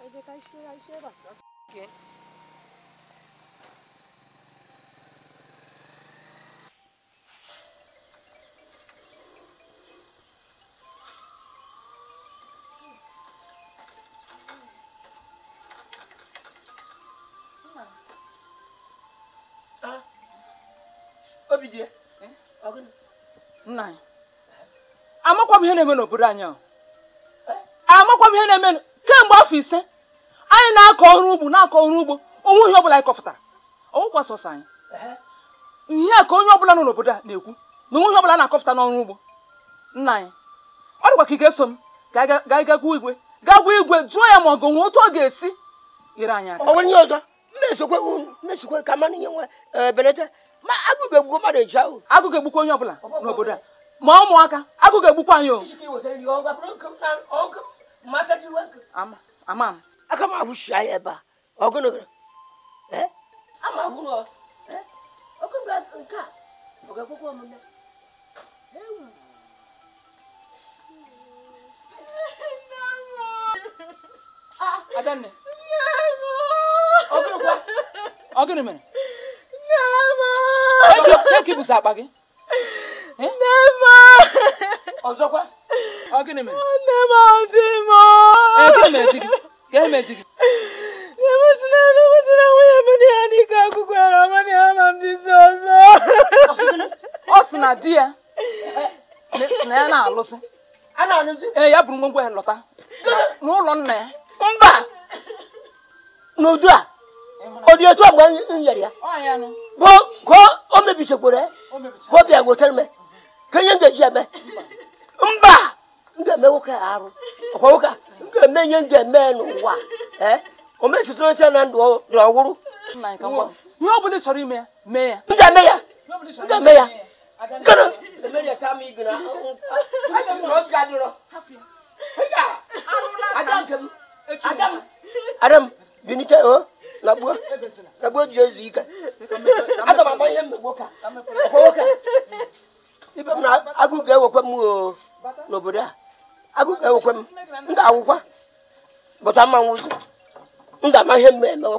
Aí vem cá, enxerga, enxerga. ¿Quién? amakwa m ihe na-eme n'obodo anyị amakwa m ihe na-eme kemgbe afọ ise anyị na-akọ ọrụ ugbo na-akọ ọrụ ugbo onwe ihe ọbụla anyị kọfụtara ọwụkwa sọsọ anyị ihe a ka onye ọbụla nọ n'obodo a na-ekwu na onwe ihe ọbụla na-akọfụta n'ọrụ ugbo nna anyị ọ dịkwa ka ị ga-eso m ka anyị gwa igwe gaa gwa igwe jụọ ya ma ọ ga-enwe otu ọ ga-esi nyere anyị aka onwe ihe ọzọ mmesokwe ka mmanụ ihe nwe ebelata ma agụụ ga-egbukwa mmadụ eji ahụ agụụ ga-egbukwa onye ọbụla n'obodo a ma ụmụaka agụụ egbukwa anyị o ama m aka m ahụshi anya ebe a ọgụnụgụ ama hụrụ nke a bụga akwụkwọ ọmụna Adanne. Ọgịnị kwa? Ọgịnị mere? E e ọ dị gọọmenti ọ sị na di eh, ya si na ya na-alụsị ee ya bụrụ ngwongwo ya lọta n'ụlọ na ya mba n'udu a ọ dị otu agba ya bụ ka o mebichekwara ya ka ọ bịa gwetara ka ihe ngaji eme mba m ga-eme nwoke a arụ ọkwa nwoke a ka me nye nje me no wa eh o me sitro se na ndo ndo wuru na nka kwa ni obu ni sori me me ya nje me ya nje me ya kana le me ya ta mi gina aja mi ro ga diro hafia aja aja nkam adam adam bi ni ke o labua labua bi ezu ika adam abọ ihe mmegbu ka ọkwa nwoke ibe m na agụgụ ewekwa oh, m n'obodo a agụ ga-ewekwe m ndị awụkwa bụta mma nwụzi m ga-ama ihe mgbe eme a ihe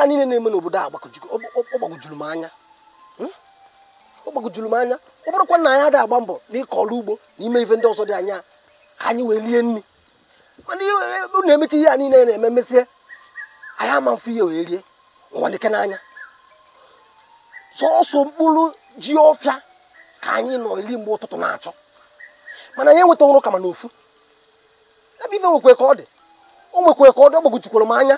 a niile na-eme n'obodo a gbagojuru m anya gbagojuru m anya ọ bụrụkwa na anyị adịghị agba mbọ n'ịkọ ọrụ ugbo n'ime ife ndị ọzọ dị anya ka anyị wee rie nri mana e, na-emechi ihe a niile na-eme mesie anyị ama mfe ihe wee rie nwadike n'anya sọọsọ mkpụrụ ji ọfịa ka anyị nọ iri mgbe ụtụtụ na-achọ mana anyị enweta ọrụ kama na ofu ebe ife nwekwe ka ọ dị o nwekwe ka ọ dị ọgbagojikwara m anya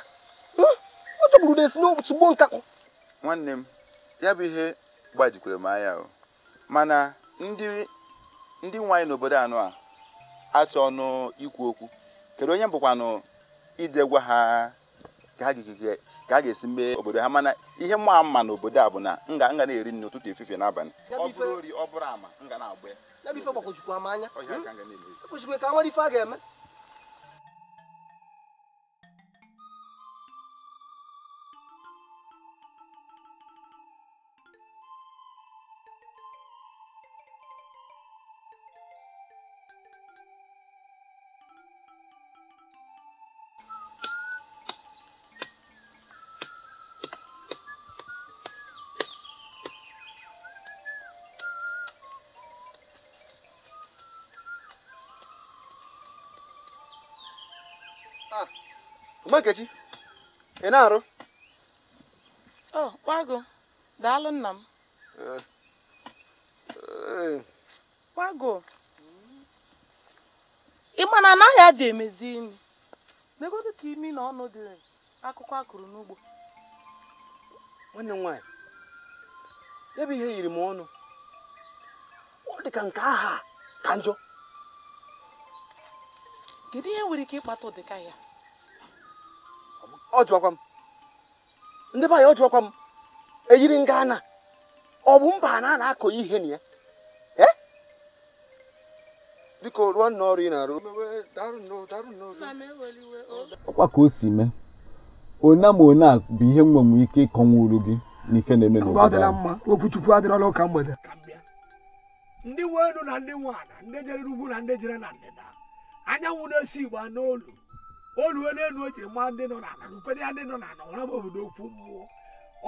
hmm, ọ chọburu na esi n'otu gbo nkakọ nwanne m ya bụ ihe gbajikwere m anya o mana ndị ndị nwaanyị n'obodo anọ a achọ ọnụ ikwu okwu kedu onye bụkwanụ ije gwa ha ka ha ga-esi mee obodo ha mana ihe mma mma n'obodo a bụ na nga nga na-eri nri n'ụtụtụ efifie n'abalị ọ bụrụ ama nga na-agba ya. anya ka nwere ife a ga-eme nkechi ị na-arụ kwago daalụ nna m kwago ịma na anaghị adị emezi imi megodo ka imi na ọnụ dị akụkọ akụrụ n'ugbo nwanne m nwaanyị ya bụ ihe yiri m ọnụ ọ dị ka nke aha ka njọ kedu ihe nwere ike ịkpata ụdịka ya ọ m ndị be anyị ọ m eyiri nga na ọ bụ mba na a na-akọ ihe na ya eh? biko rụọ nna ọrụ ị na-arụ ọkwa ka o si mee ona ma one bụ ihe mgbanwe ike ịkọnwuru gị n'ike na-eme n'obodo ndị na ndị ndị jere na ndị jere oluo n'elu o jiri maa ndị nọ n'ala na ukwede ya ndị nọ n'ala ọ bụ obodo okwu mmụọ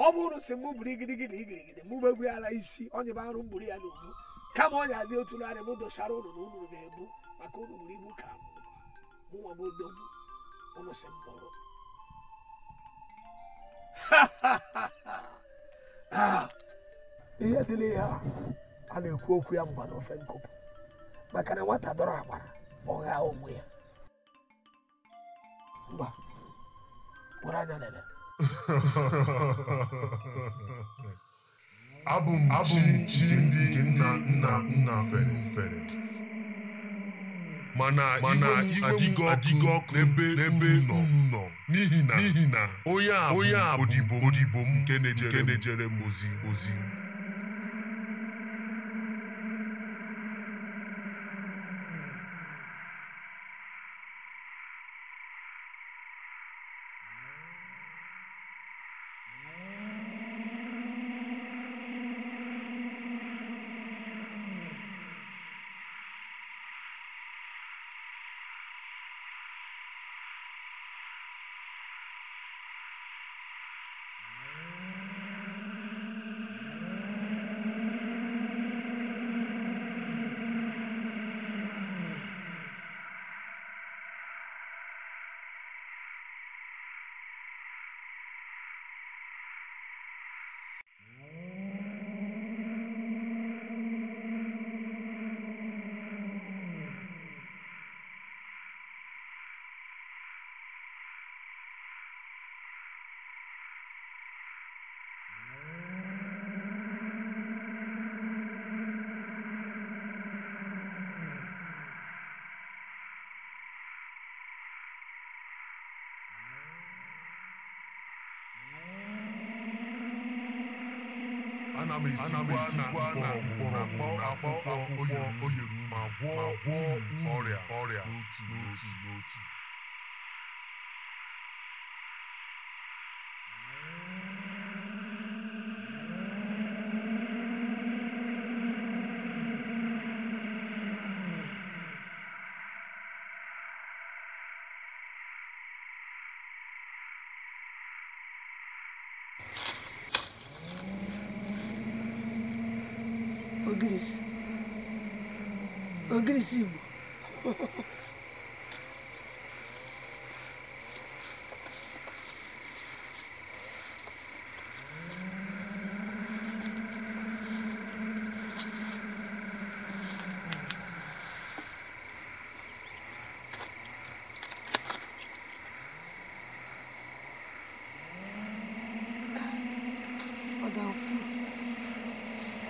ọ bụrụ si mụ buru igirigiri igirigiri mụ megburi ala isi onye bụ arụ mburu ya n'ogbu kama ọnya dị otu narị m dosara ụlọ na unu ga-ebu maka ụlọ buru ibu ka mụnwa m odogwu unu si mkpọrọ ihe dị n'ihe a na-ekwu okwu ya mgba n'ofe nkụpụ maka na nwata dọrọ agbara ọ ghaa onwe ya ngwa kpụrụ m abụ m ndị nna nna nna fere fere mana mana m adịgo ọkụ n'ebe n'ebe nọ n'ihi na n'ihi odibo m nke m ozi anamesiwana mkpọrọgwụ akpụkpọ onye ruru ma gwọọ ọrịa cima.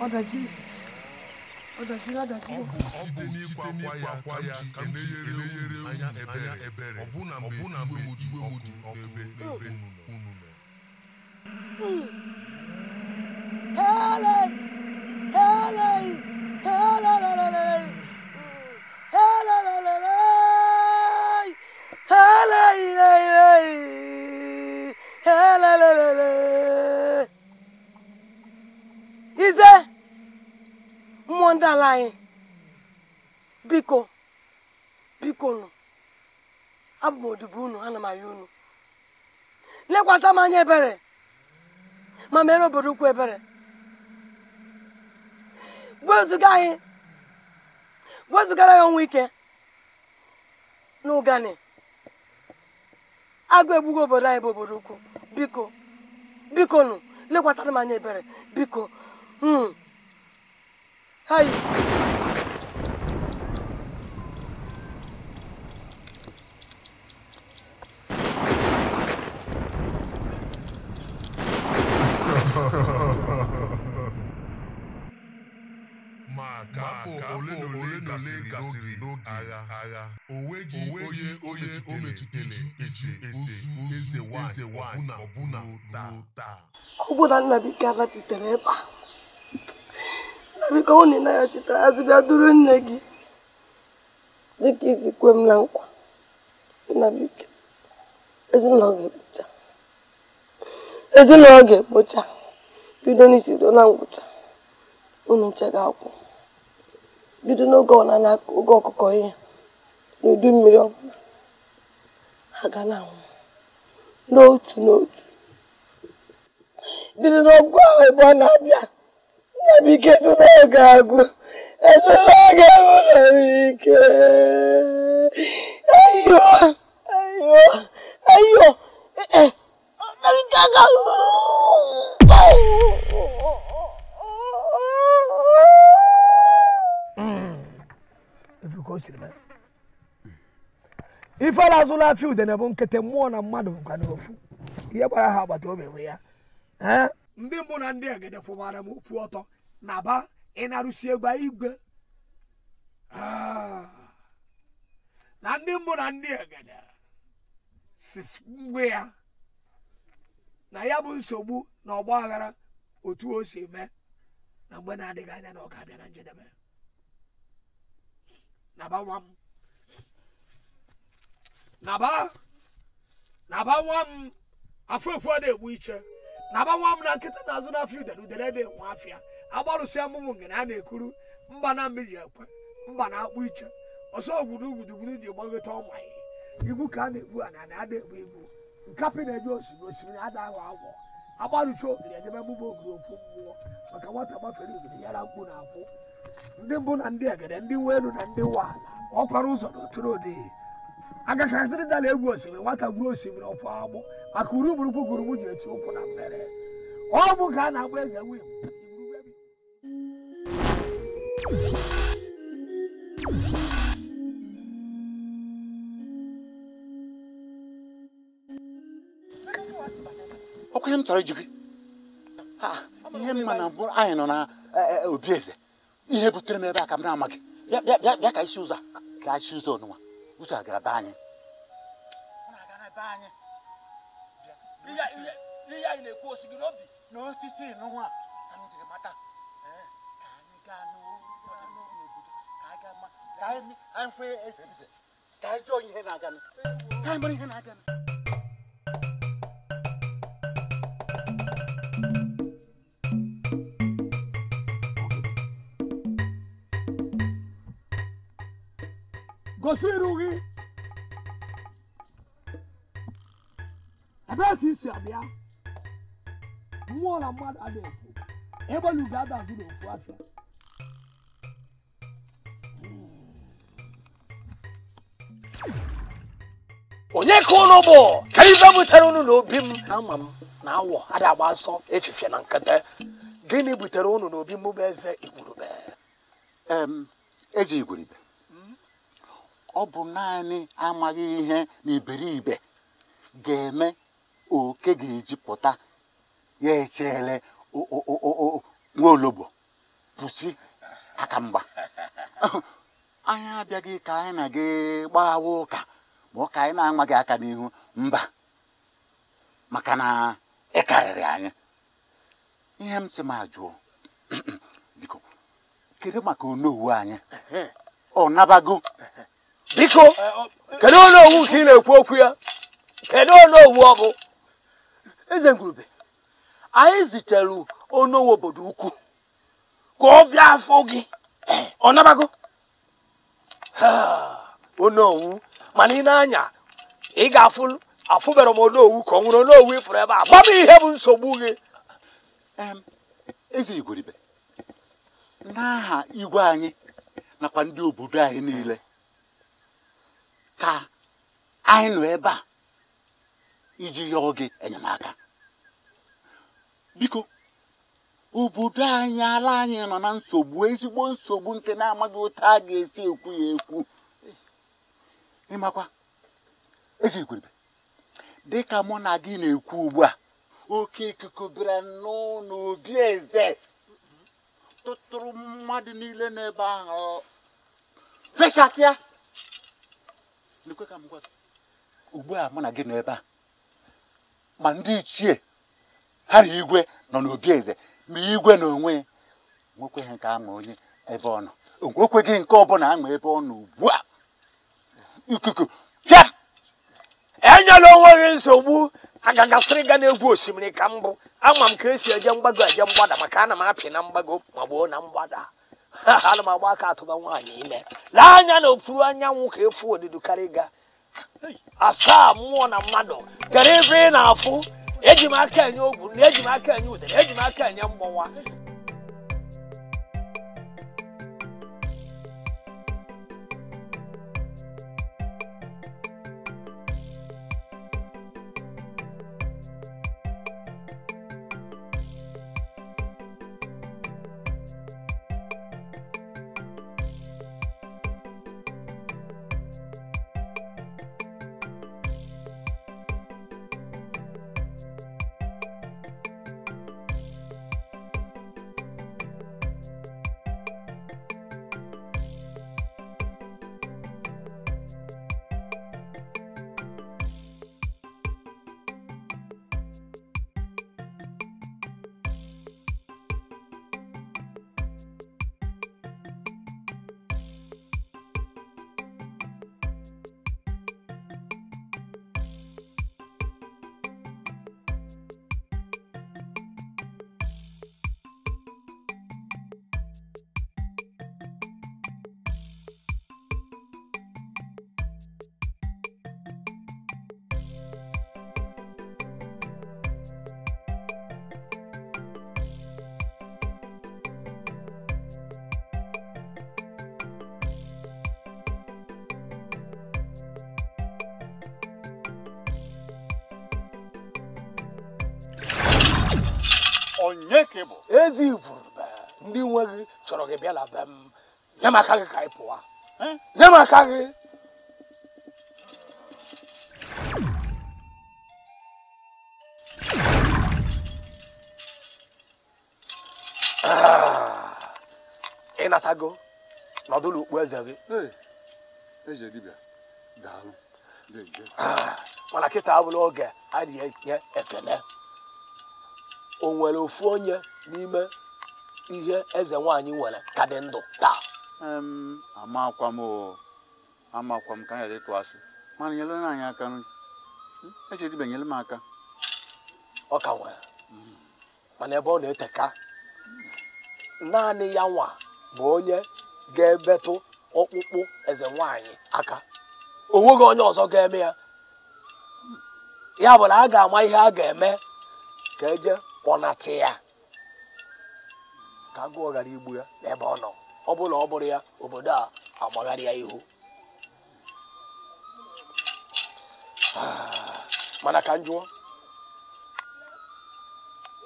Olha aqui. ọ bụ n'ikwa akwa ya ka m na anya ebere ọbụna mgbe mgbe m dị n'ebe mekwasa m anya ebere ma mere obodo ukwu ebere wezuga anyị wezugara ya ọnwa ike na ụgani agụ egbugo obodo anyị bụ obodo ukwu biko biko nụ lekwasara m anya ebere biko hmm hayi maka ole na ole gasịrị n'oge agha agha o nweghị onye o metụtara eze ese eze nwanyị ọbụna ọbụna ruo taa ọbụna nnabika rachitere ebe a nnabika ọ na ya chitere azịbịa duru nne gị dịka isi kwe m na nkwa nnabika ezinụlọ ga-ekpocha ezinụlọ ga-ekpocha bido n'isi ruo na ngwụcha unu chega akwụ bido n'oge ọnana oge ọkụkọ ihe n'udu mmiri ọbụla ha na anwụ n'otu n'otu bido n'ọgụ ahụ ebe ọ na-abịa nna m ike ezere ga agụ ezere ga enwere m ike ayo ayo ayo ee ọ na-aga ka o siri mee ala azụla afị udene bụ nkịtị mmụọ na mmadụ bụkwa n'ofu ihe gbara ha agbata obi bụ ya ndị mbụ na ndị egede kwụbara m okwu ọtọ na ba ịnarụsi egbe igwe na ndị mbụ na ndị egede si ngwe ya na ya bụ nsogbu na ọgba aghara otu o si mee na mgbe na-adịghị anya na ọ ga-abịa na njedebe naba nwa m naba naba nwa m afrofru na-egbu iche naba nwa m na nkịta na-azụ n'afịa udere udere na-enwe afịa agbarụsị amụmụ ngene a na-ekuru mba na mmiri ekwe mba na-akpụ iche ọsọ ogwurugwurugwuru ji gbagota ọmaghị ibu ka a na-egbu ana na ada egbu egbu nkapị na eji osimiri osimiri ada ahụ agwọ agbarụcha ogiri edebe mmụba ogiri okwu mmụọ maka nwata gbafere ogiri yara mkpu na akwụ ndị mbụ na ndị egede ndị nwe elu na ndị nwa ọkwara ụzọ na oturu ụdị dala egwu osimiri nwata gwuru osimiri ọkwa agbụ maka uruburukwu gụrụ m ji eti ụkwụ na mmere ọ bụ ka a na-agba eze wim ọkwa ihe m chọrọ iji gị ihe mma na mbụ anyị nọ na e, e, obi eze ihe butere m ebe a ka m na-amaghị bịa ka isi ụzọ ka isi ụzọ ọnụnwa ụzọ a gara be anyị ihe anyị na-ekwu osi gị n'obi na osisi nwa ka m jiri mata ka anyị gaa n'obodo ka anyị gaa ma ka anyị fụ ka anyị jụọ ihe na-aga ka anyị mara ihe na-aga gosiri gị ebe ka isi abịa mmụọ na mmadụ adị ekwu ebe na ugo adazụ n'ofu afịa onye ka ụlọ bụ ka ibe butere ụnụ n'obi m ama m na awọ ada agba asọ efifie na nkata gịnị butere ụnụ n'obi m bụ eze igwurube eze igwurube ọ bụ naanị amaghị ihe na iberibe ga-eme oke ga-ejipụta ya echele nwaologbo pụsị akamgba anyị abịaghị ka anyị na gị ụka ma ọ ka anyị na-amaghị aka n'ihu mba maka na ị anyị ihe m sị ma jụọ biko kedu maka onowu anyị ọ nabago biko kedu onye owu ka ị na-ekwu okwu ya kedu onye owu eze ngurube anyị zitere onye owu obodo ukwu ka ọ bịa afọ gị ọ nabago onye owu mana ị na-anya ị ga-afụ afụbara m onye owu ka ọ nwụrụ onye owu ịfụrụ ebe a gba m ihe bụ nsogbu gị eze igwuribe n'aha igwe anyị nakwa ndị obodo anyị niile ka anyị nọ ebe a iji yọọ gị enyemaka biko obodo anyị ala anyị nọ na nsogbu ezigbo nsogbu nke na-amaghị otu a ga-esi ekwu ya ekwu ịmakwa ezi igweribe dịka mụ na gị na-ekwu ugbu a oke ikuku bịara n'ụlọ obi eze tụtụrụ mmadụ niile n'ebe ahụ fechasịa ugbu a mụ na gị nọ ebe a ma ndị ichie ha na igwe nọ n'obi eze ma igwe na onwe nwekwe ha nke ama onye ebe ọ nọ gị nke ọbụla ama ebe ọ nọ ugbu a ikuku ya enyela onwe gị nsogbu agagasịrị ga egwu osimiri ka mbụ ama m ka esi eje mgbago eje mgbada maka ana m apị na mgbago ma gbuo na mgbada ana m agba aka atụba nwaanyị ime lee anya na okpuru anyanwụ ka efu odido karịga asaa mmụọ na mmadụ gara ebe ị na-afụ eji m aka enye ogwu eji m aka enye udere eji m aka enye mgbọnwa onye ka ị bụ ezi igwurube ndị nwe gị chọrọ gị bịa be m nye m aka gị ka ị pụwa eh? nye m aka gị ah. ị natago nọdụ ukpu eze gị eze ah, mana kịta abụla oge a na-enye ekele o nwere ofu onye n'ime ihe eze nwanyị nwere ka dị ndụ taa amakwa m amakwa m ka anyị ịtụ asị mana nyere anyị aka hmm? echedibe nyere m aka ọ ka nwere mana ebe ọ na-eteka naanị ya nwa bụ onye ga-ebetụ ọkpụkpụ eze nwanyị aka o nweghị onye ọzọ ga-eme ya ya bụ na a ga-ama ihe a ga-eme ka eje kpọnata ya ka agụọ ghara igbu ya n'ebe ọ nọ ọ bụla ọ bụrụ ya obodo a agbagharị ya ihu ah, mana ka njụọ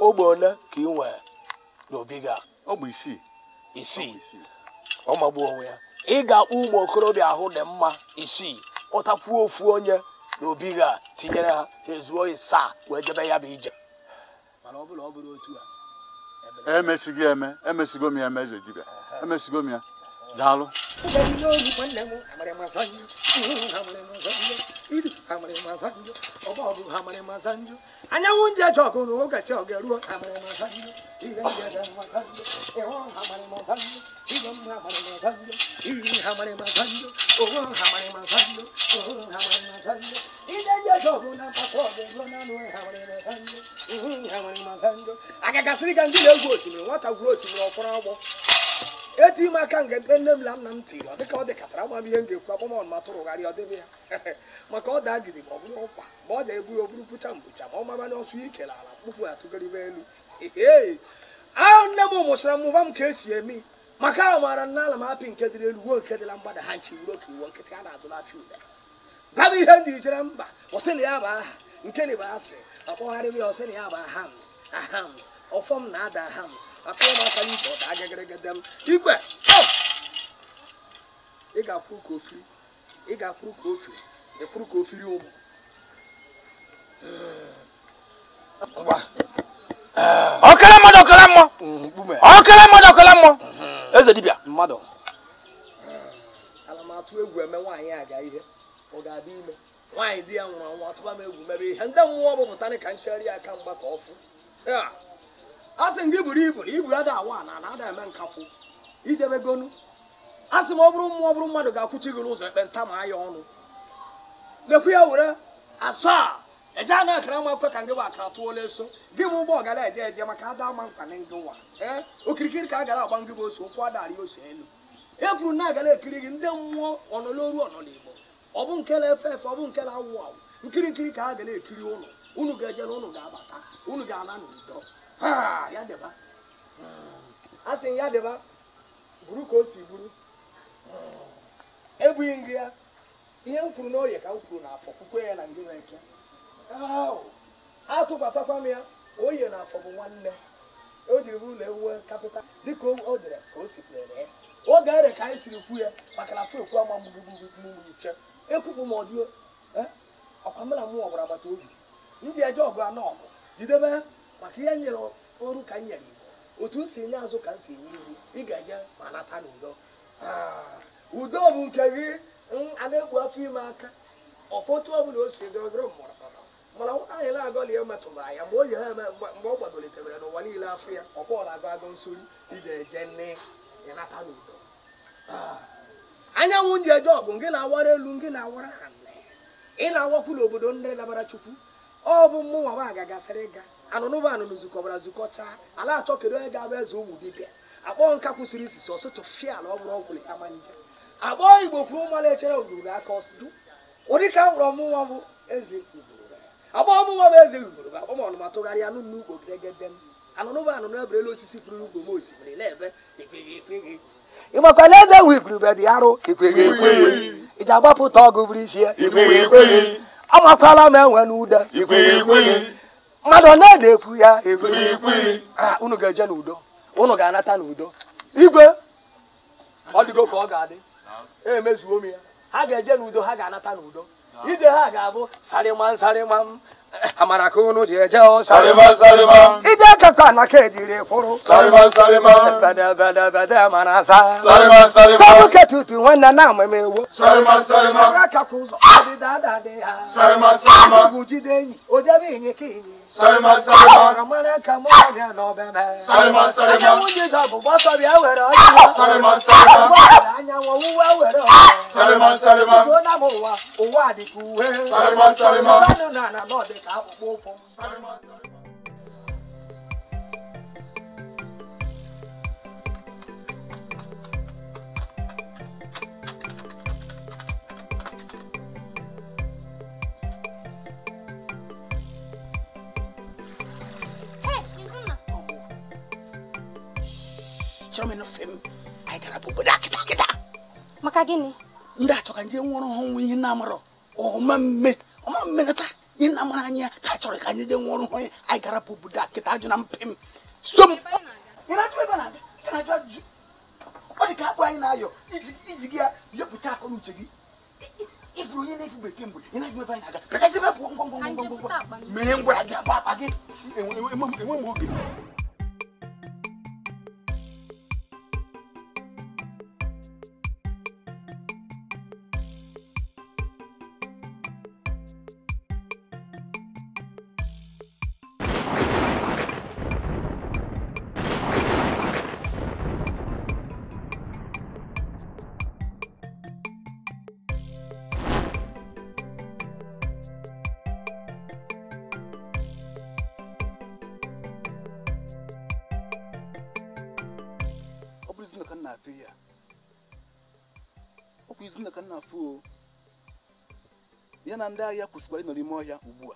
ogbe ole ka ị nwee n'obi gị ọ isii isii ọ magbuo onwe ya ị ga akpụ ụmụ okorobịa ahụ dị mma isii ụtakwuo ofu onye n'obi gị a tinyere ha ezuo isaa wee jebe ya bụ ije mana ọ bụrụ otu a emesigo e eme e m ya eze dibịa emesigo m ya daalụ anyanwụ ndị eji ọgụ na ndị na-egwu osimiri nwata gwuru osimiri ọkpọrọ agbọ eti m aka nke nne m na nna m tiri ọ dịka ọ dịkatara ama m ihe m ga-ekwu agbamọn ma tụrụgharị ọ dịbe ya maka ọ daa gidi ma ọ bụrụ ụkwa ma ọ da-ebu oburu pụcha mbụcha ma ọ mabanye ọsụ ike na ala mkpụkpụ atụgaribe elu ee ahụ nne m mụsịra mmụba m ka esi emi maka ahụ maara nna ala m apị nke dịrị elu wuo nke dịla mgbada ha nchi wuro ka nkịtị a na adụ n'afịa ude baba ihe ndị ijere mba ọsị na ya bụ aha nke na bụ asị ọkpọgharịba ya ọsị na ya bụ ahams ahams ọfọm na ada ahams akpụọ m aka n'ike ọ daa gịgịrịgịdị m igwe ị ga ka ofiri ị ga akpụrụ ka ofiri ịkwụrụ ka ofiri ụmụ ọkara mmadụ ọkara mmụọ mm, ọkara mmadụ ọkara mmụọ mm-hmm. eze dibịa mmadụ atụ egwu eme nwaanyị aga ihe ọ ga-adị ime nwaanyị di ya nwụrụ anwụ atụba m egwu mebe ihe ndị mmụọ bụ pụta ka nchegharị aka mgba ka ọ asị sị m gị buru ibu na ibu ada awa na ada eme nkakwụ ijebe gonu a sị m ọ bụrụ mmụọ ọ bụrụ mmadụ ga-akwụchi gị n'ụzọ ekpenta ma anya ọnụ mekwa ya were asaa eje anụ akara ma ekwe ka ngị bụ akara tụọla eso gị m ụgbọ gara eje eje maka ada ama mkpa na ngị nwa ee okirikiri ka a gara agba ngị bụ ose ụkwụ adarị ose elu e kwuru na agara ekiri gị ndị mmụọ ọnọloru ọnọligbo ọ bụ nke na-efe efe ọ bụ nke na-awụ awụ nkiri nkiri ka a gara ekiri ụlọ unu ga-eje unu ga-abata unu ga-ala n'udo ha ya deba, hmm. a sị ya deba buru ka o si buru hmm. ebughị nri ya ihe m kwuru n'orie ka m kwuru n'afọ kwukwe ya na ndị nwere ike atụkwasakwa m ya oye na afọ bụ nwanne o jiri bụrụ na ewuwe kapịta dịka o dere ka o sikwere ya oge ere ka anyị siri kwu ya maka na fekwu ama mgbugbugbugbuche ekwupụ m ọdị eh? ọkwamela mụ ọgbara agbata obi ndị eje ọgụ anọ ọgụ jidebe Ah, mm, maka ihe nyere ọrụ ka m nyere igbo otu m si enye azụ ka m si enye ihu ị ga enye ma nata n'udo udo bụ nke gị a na afọ ime aka ọfọtụ ọbụla o si dị ọgụrụ mana anyị na-agọli ya metụtara ya mgbe o ji ha mgbe ọ gbadolitebere n'ụwa niile afọ ya ọkpọọ na-agụ agụ nsori ije eje nne ya n'udo ah, anyanwụ ji eje ọgụ gị na-awara elu gị na-awara ha nne ị na-awakwu n'obodo ndị labara chukwu ọ bụ mmụnwa m agagasịrị ịga anụnụba anụnụ zukọbara zukọcha ala achọ kedu onye ga-abụ eze ụmụ dibịa akpọ nka kwụsịrị isisi ọsọ tụfịa ala ọ bụrụ ọgwụlị kama nje akpọ igbo kwuru mmanụ echere ogologo aka ọsụdụ ụdị ka nwụrụ ọmụnwa bụ eze igbo akpọ ọmụnwa bụ eze igbo akpọ m ọnụma tụgharịa anụ n'ugbo gregede m anụnụba anụnụ eberela osisi pụrụ ugbo m osimiri na-ebe ịmakwala eze nwe igurube dị arụ ka ekweghị ekweghị iji agbapụta ọgụ bụrụ isi ya amakwaala m enwe n'ude mmadụ ọ na-ekwu ya unu ga-eje n'udo unu ga-anata n'udo igwe ọ dịgo ka ọ ga-adị emezuo m ya ha ga-eje n'udo ha ga-anata n'udo ije ha ga-abụ sarịma sarịma m amara ka unu ji eje ọ sarịma anaka ejiri kwụrụ tutu nwanne na amam ewo ụzọ ha ugwu jide enyi o jebe Salima salima. Ọ̀rọ̀mọ́rẹ́ kan mú ọ̀gá náà bẹ́ẹ̀ mẹ́. Salima salima. Ẹ̀jẹ̀ mú jíjọ bùbọ́ sọ̀bì ẹ̀wẹ̀rẹ̀ ọ̀jọ́. Salima salima. Ọ̀rọ̀ àyànwọ̀ wúwọ́ ẹ̀wẹ̀rẹ̀ ọ̀jọ́. Salima salima. Ìjọ náà mọ̀ wá, òwò àdìkú wé. Salima salima. Ìjọba nínú àná náà dé ká àpòpọ̀ fún. Salima salima. achọrọ nah, maka gịnị ndị achọkanji nwụrụ ọhụụ ihe na-amarọ ọma mme ọma mmenata ihe na-amara anyị ka achọrọ ka anyị jee nwụrụ ọhụụ gara bụ obodo akịta ajụ na iji gya. ya yọpụcha akọ na uche gị ifuru onye na-efu bekee mgbe ị na-ajụ ebe anyị na-aga pekasị ebe pụọ ngwangwangwangwangwa mee ngwara na ndị ahịa kwụsịkwara ịnọ n'ime ọhịa ugbu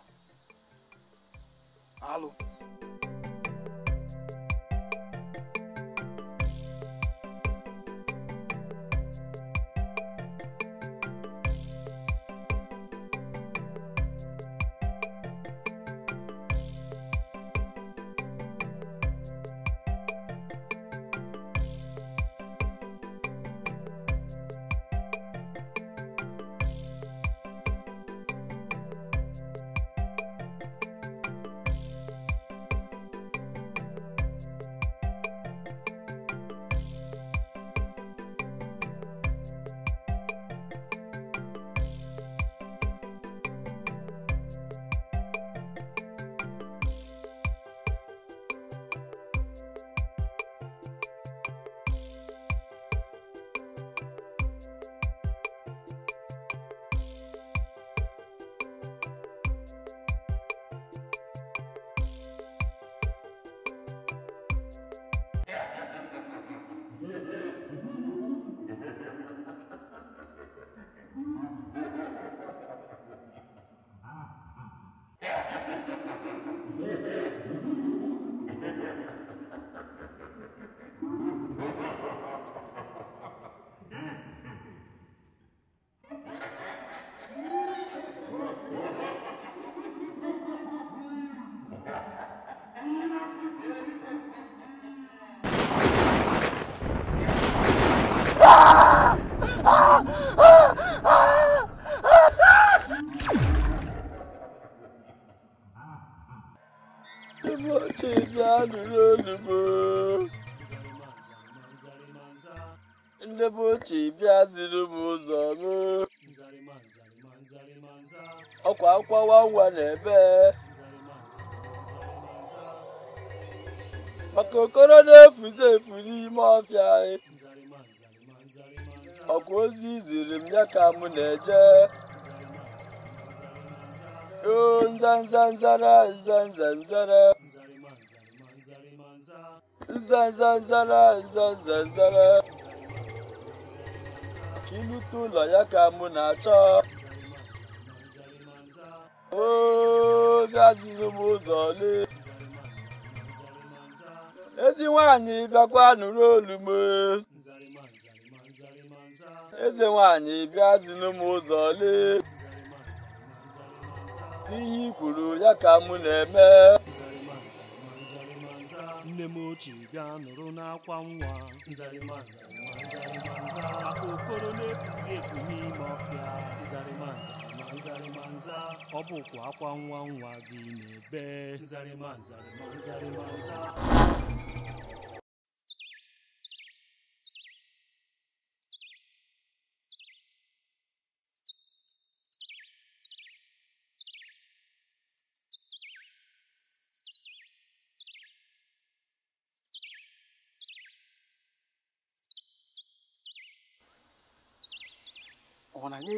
ka m na-eje nzanzanzara nzanzanzara nzanzanzara nzanzanzara ka ụlọ ya ka m na-achọ oge m ụzọ ole ezi nwaanyị bịakwa nụrụ olu m eze nwanyị bịazinu m ụzọ lee ihe i kwuru ya ka mụ na-eme nne m ochie bịa nụrụ n'akwa nwa maka okoro na-efuzi efu n'ime ọfịa ọ bụkwa akwa nwa nwa gị na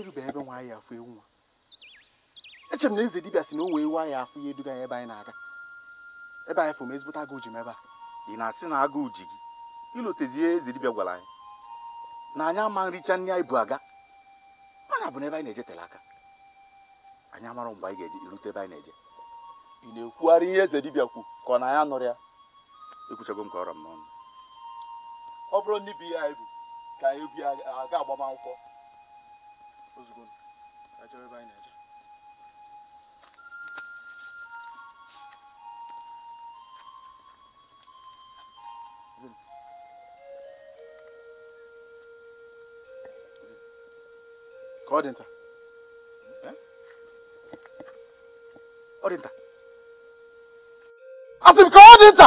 erube ebe nwa anyị afụ ewu nwa echere m na eze dibịa si na o wee ewu anyị afụ ihe eduga ya ebe anyị na-aga ebe anyị fụ m ezigbote agụụ ji m ebe a ị na-asị na agụụ ji gị ilotezi ihe eze dibịa gwara anyị na anyị ama nricha nri anyị bụ aga mana bụ n'ebe anyị na-eje tere aka anyị amara mgbe anyị ga-eje irute ebe anyị na-eje ị na-ekwugharị ihe eze dibia kwu ka ọ na ya nụrụ ya ekwuchago m ka ọrọ m n'ọnụ ọ bụrụ na ibe ihe anyị bụ ka anyị bi aga agbamakwụkwọ ozugbo achọrọ ebe anyị na-eje ka ọ dị nta ọ dị nta asị m ka ọ dị nta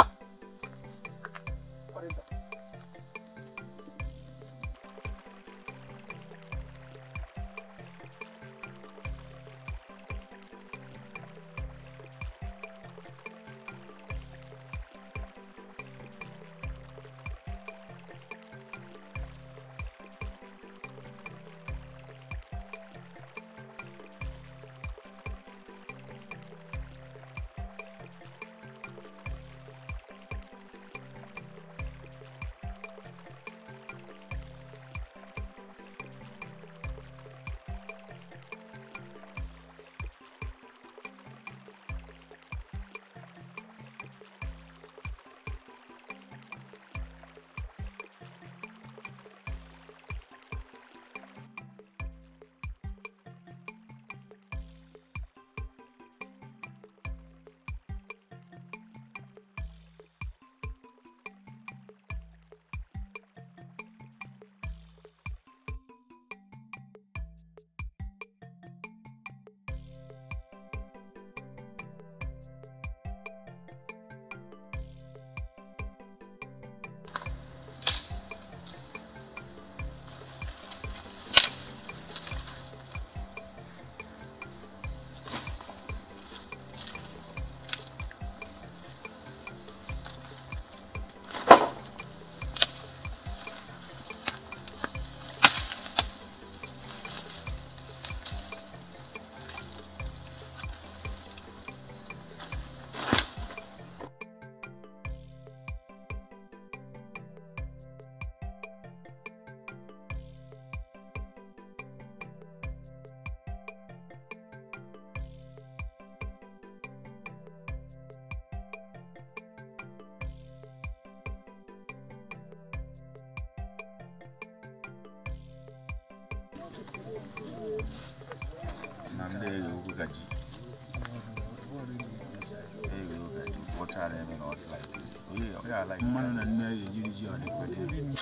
난데 여기까지 여기까지 못 잘하면 어디 갈지 여기 여기 알아 6만 원안 내야 유지원이 거든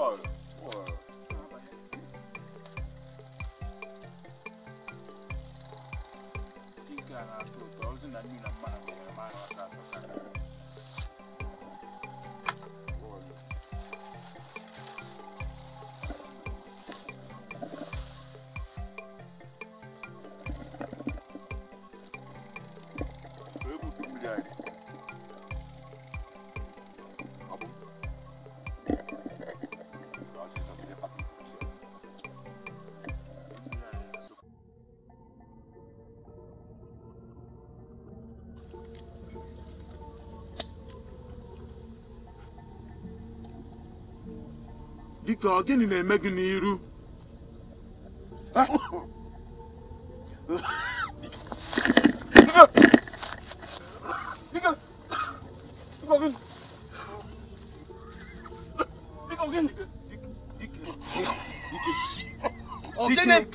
low. Victor gịnị na-eme gị n'iru 어, 쟤네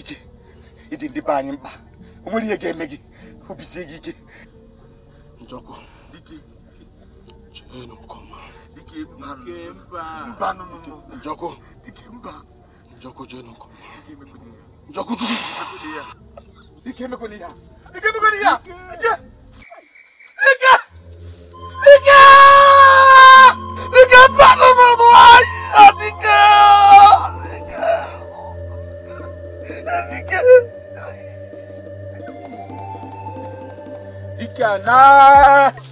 ike ịdị ndị be anyị mkpa o nwere ihe ga-eme gị obisie gị ike njọkụ cheenụ nke ọma mba njọkụ njọkụ cheenụ nke ọma njọkụ chukwu ike emekwana ihe ike emekwana ihe ike No.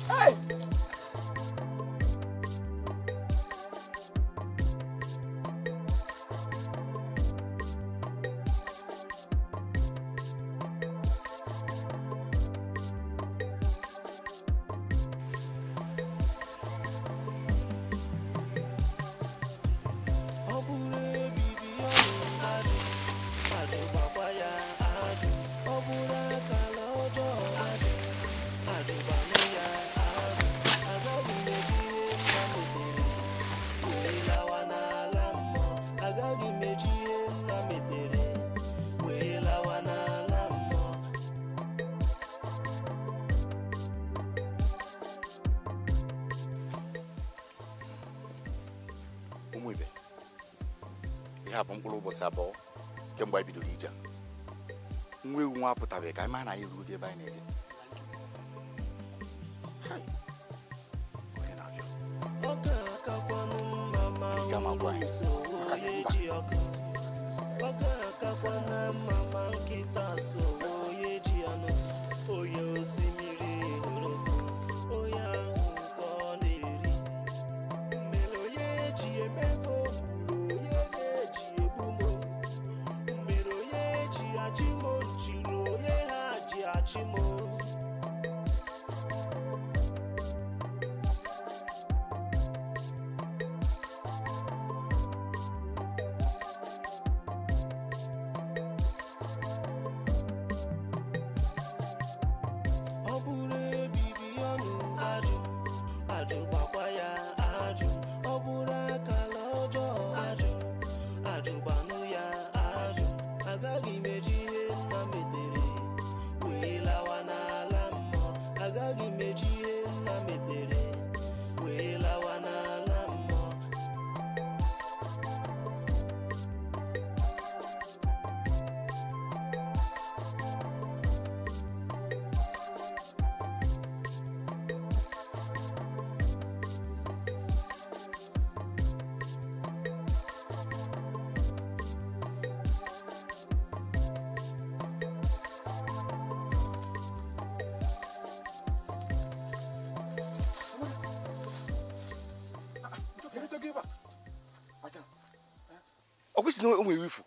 si na o nwere ifu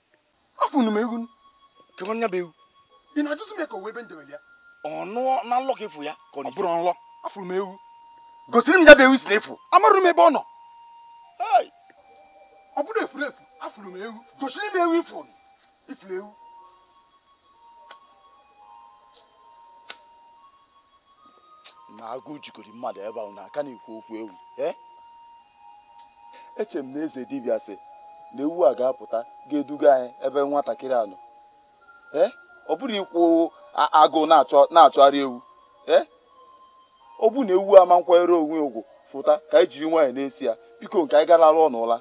afọ unu m ewu ka ọ nya bụ ewu ị na-ajụzi m ya ka o wee ebe ndebe ya ọnụ na nlọ ka efu ya ka ọ bụrụ nlọ afụrụ m ewu gosiri m ya bụ ewu si na efu amarụ m ebe ọ nọ ọ bụrụ efuru efu afụrụ m ewu gosiri m ewu ifuru ifuru ewu na agụụ jikọrọ mmadụ ebe ahụ na aka na-ekwu okwu ewu eh? echere m na eze dibịa sị na ewu a ga-apụta ga-eduga anyị ebe nwatakịrị anọ ee ọ bụrụ ikwu agụụ na-achọgharị ewu e ọ bụ na ewu ama nkwanyere onwe ugwu fụta ka anyị jiri nwaanyị na-esi ya biko nke anyị na n'ụla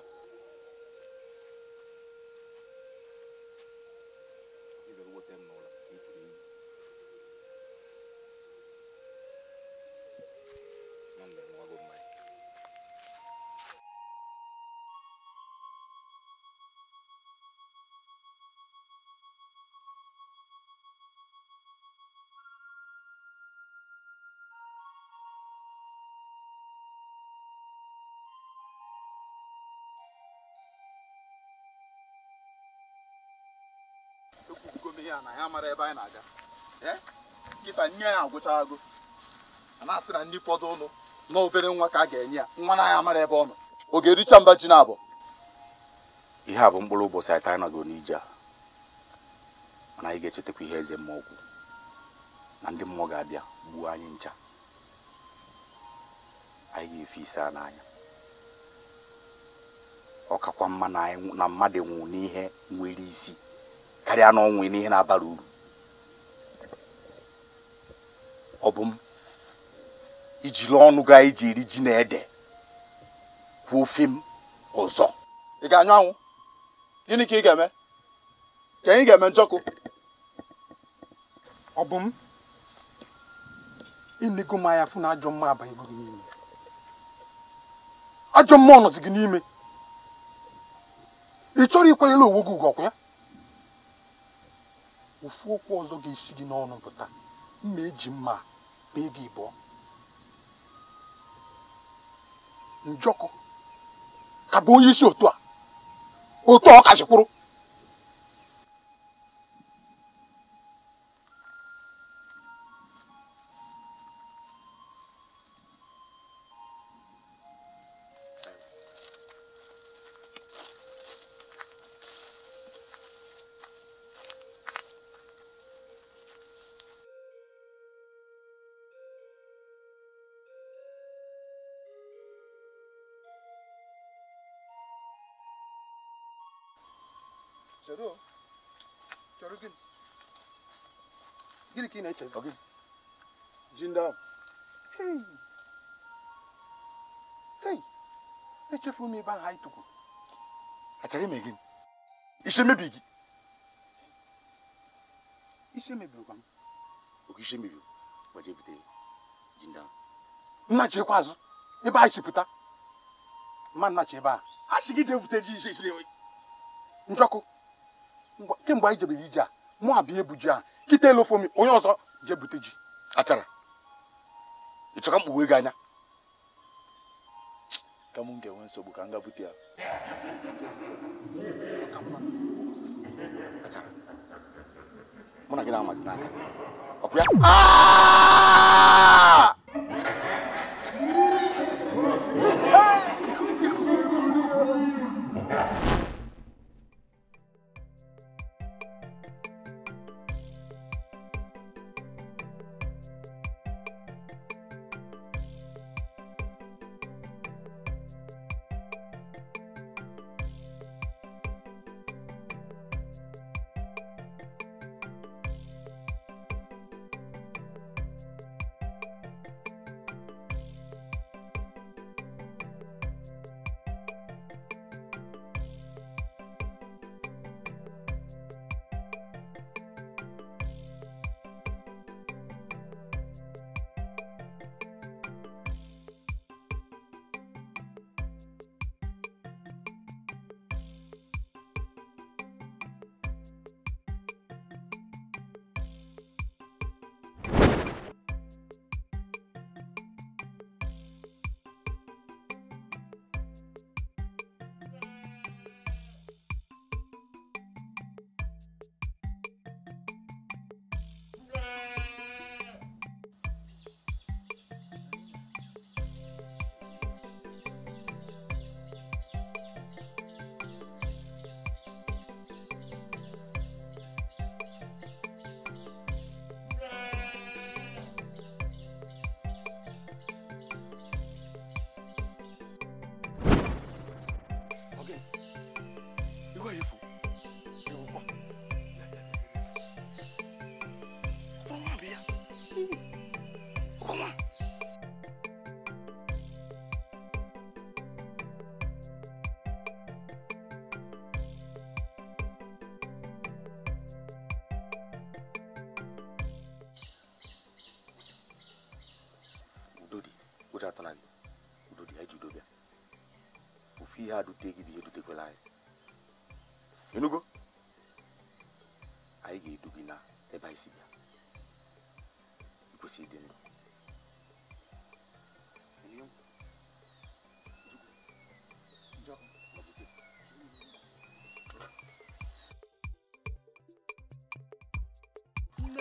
mara ebe anyị na-aga eh? nkịta nye ya agwụcha agụ a na-asị na ndị fọdụ ụlọ na obere nwa ka a ga-enye ya nwa na ya mara ebe ọ nọ ọ ga-ericha mba ji na abụọ ihe a bụ mkpụrụ ụbọchị anyị taa nọgo n'ije a mana anyị ga-echetakwa ihe eze mmụọ ọgwụ na ndị mmụọ ga-abịa gbuo anyị ncha anyị ga-efe isi a n'anya ọ kakwa mma na mmadụ nwụ n'ihe nwere isi karịa na ọnwụ n'ihe na-abara uru ọ bụ m ijiri ọnụ gaa iji eri ji na ede kwuo ofe m ọzọ ị ga-anyụ anwụ gịnị ka ị ga-eme ka anyị ga-eme njọkụ ọ bụ m ịnego m anya fụ na ajọ mma abanyego gị n'ime ajọ mma ọ nọzi gị n'ime ị chọrọ ịkwanyere onwe gị ugwu ọkwa ya ofu okwu ọzọ ga-esi gị n'ọnụ pụta mma eji mma bee gị ịbụọ njọkụ ka bụ onye isi otu a otu ọ kachikwuru noches. Okay. Jinda. Hey. Hey. Echefu m ebe ahụ anyị tụkwuru. Achara ime gị. gị. Isi emebirikwa m. Oke isi emebiri gbaji ebute Jinda. Nnachi ekwe azụ ebe anyị si pụta. Mma nnachi ebe a. A sị isi na Njọkụ. Kemgbe anyị jebere ije a, mụ abịa kịta elu ofomi onye ọzọ je bute ji achara ịchọka mkpughe gị anya ka m ga-enwe nsogbu ka m ga bute ya mụ na n'aka ọkụ ya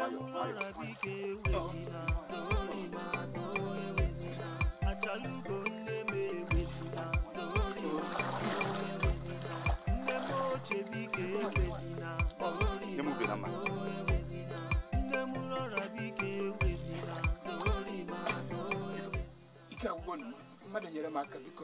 ọlọbike ewezina achalugo nne m ewezina nne m ochebike ewezina nne m rọrabike ewezina ike agwụgwọ mmadụ nyere m aka biko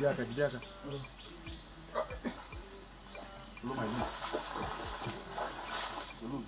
Jide haka, jide haka. Loma hii. Loma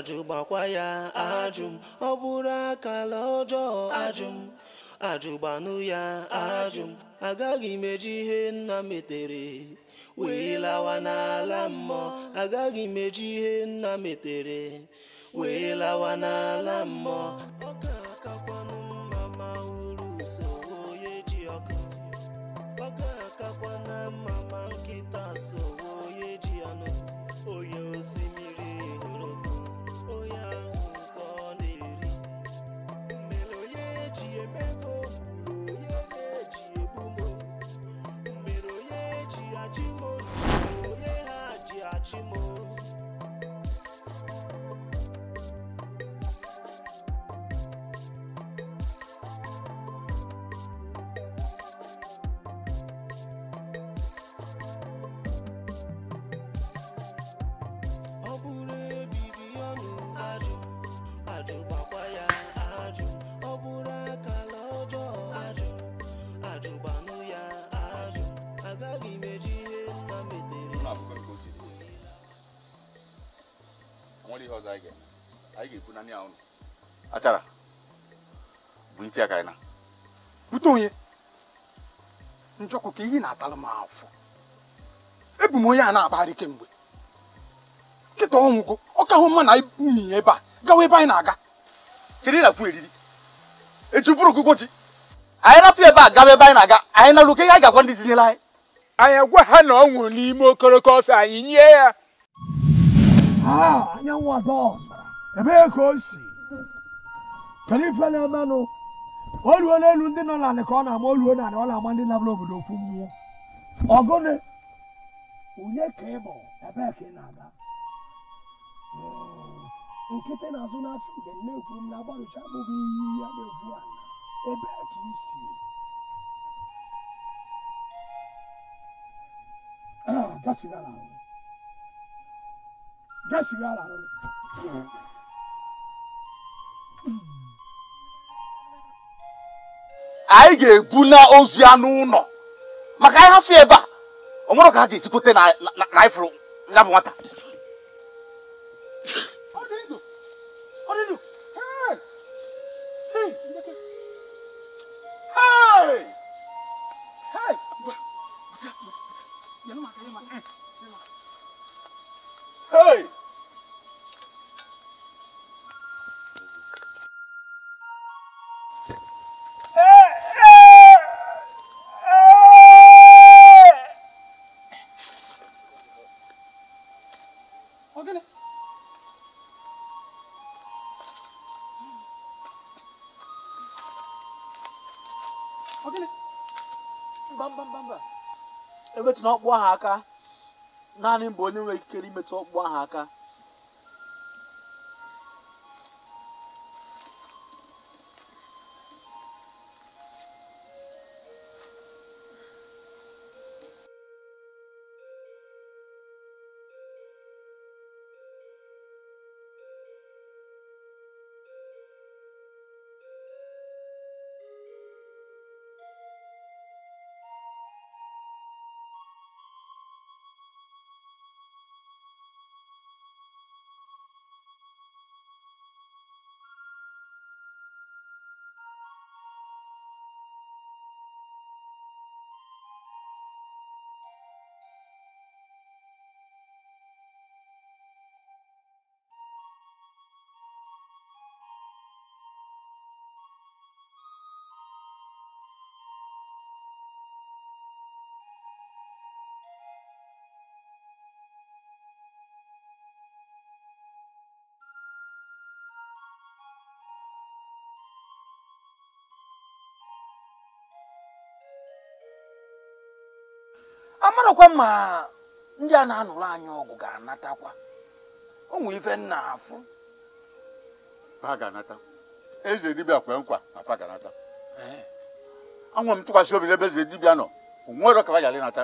ajụ ya ajụm ọ bụrụ akala ọjọọ ajụm ajụgbanụ ya ajụm agaghị m ihe nna metere wee lawa n'ala mmụọ agaghị m eji ihe nna metere wee lawa n'ala mmụọ E ya ka na bute onye njọkụ ka iyi na-atalụ m afọ ebu m onye a na-akpagharị kemgbe nkịta ọnwụgo ọ ka hụ mma na mi ebe e a gawa ebe anyị na-aga kedu ị na-akwụ eriri echi bụrụ ọgụgụ ji anyị rapụ ebe a gawa ebe anyị na-aga anyị na luke ihe anyị ga-agwa ndị zinyere anyị anyị agwa ha na ọ n'ime okoroko ọsọ anyị nye ya anyanwụ ada ọzọ ebee ka o si kedu ife na-emenụ oluo n'elu ndị nọ n'ala ka ọ na-ama oluo n'ala ọ na-ama ndị nabụla obodo okwu mmụọ ọgụnị onye ka ị bụ ebee ka ị na-aga hmm. nkịtị na-azụ n'afọ mgbe nne kwuru m na agbarụcha abụghị iyi ya na-egwu ah, ala ebee ka isi gasigara ahụ gasigara anyị ga-ebu na ozu ya n'ụlọ maka anyị hafụ ebe a ọ nwere ka ha ga-esikwute na anyị ya bụ nwata Hey! emetụ na ọkpụ ahụ aka naanị mgbe onye nwere ikikere imetụ ọkpụ ahụ aka amarakwa ma ndị a na-anụrụ anyị ọgụ ga-anatakwa onwe ife nna afụ fa ga eze dibịa kwe nkwa na fa ga-anata anwụ m tụkwasị obi n'ebe eze dibịa nọ onwere ka fa gara ịnata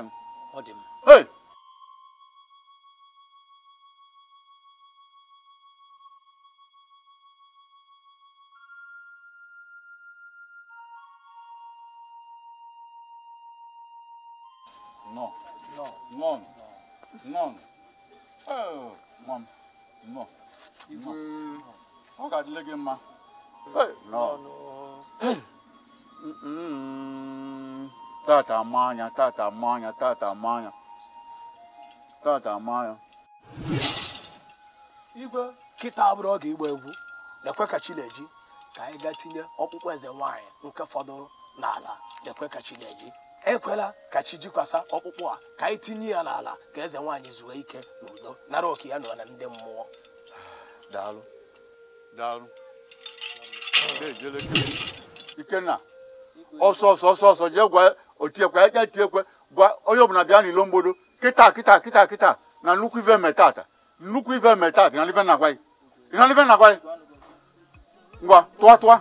Hey, no. mm mm tata manya, tata manya, tata manya. Tata manya. Igwe kita abụrụ oge igba egwu lekwe ka chineji ka anyị gaa tinye ọkpụkpụ eze nwaanyị nke fọdụrụ n'ala lekwe ka chineji ekwela ka chi jikwasa ọkpụkpụ a ka anyị tinye ya n'ala ka eze nwaanyị zuo ike n'udo nara oke ya nọ na ndị mmụọ daalụ daalụ Ikenna ọsọ ọsọ ọsọ ọsọ jee gwa otiekwe ya ga ekwe gwa onye ọbụla bịa n'ilo mgbodo kịta kịta kịta kịta na nnukwu ive metata nnukwu ive metata na ive na-agwa gị na ive na-agwa gị ngwa tụọ tụọ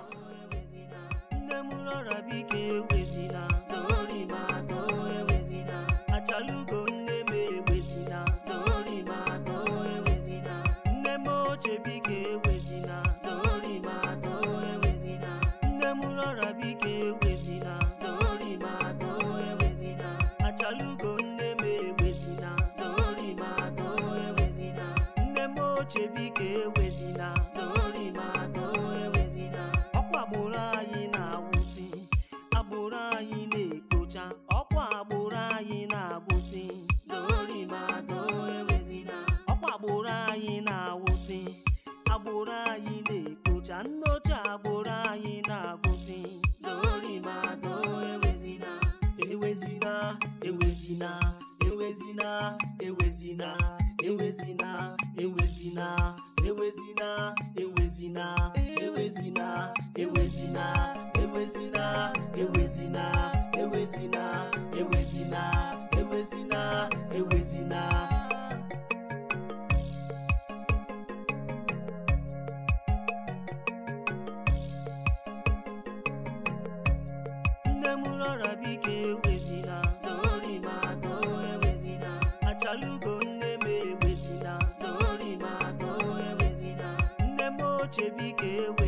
ewezina ewezina ewezina ewezina ewezina ewezina ewezina ewezina ewezina ewezina nne m ewezina away.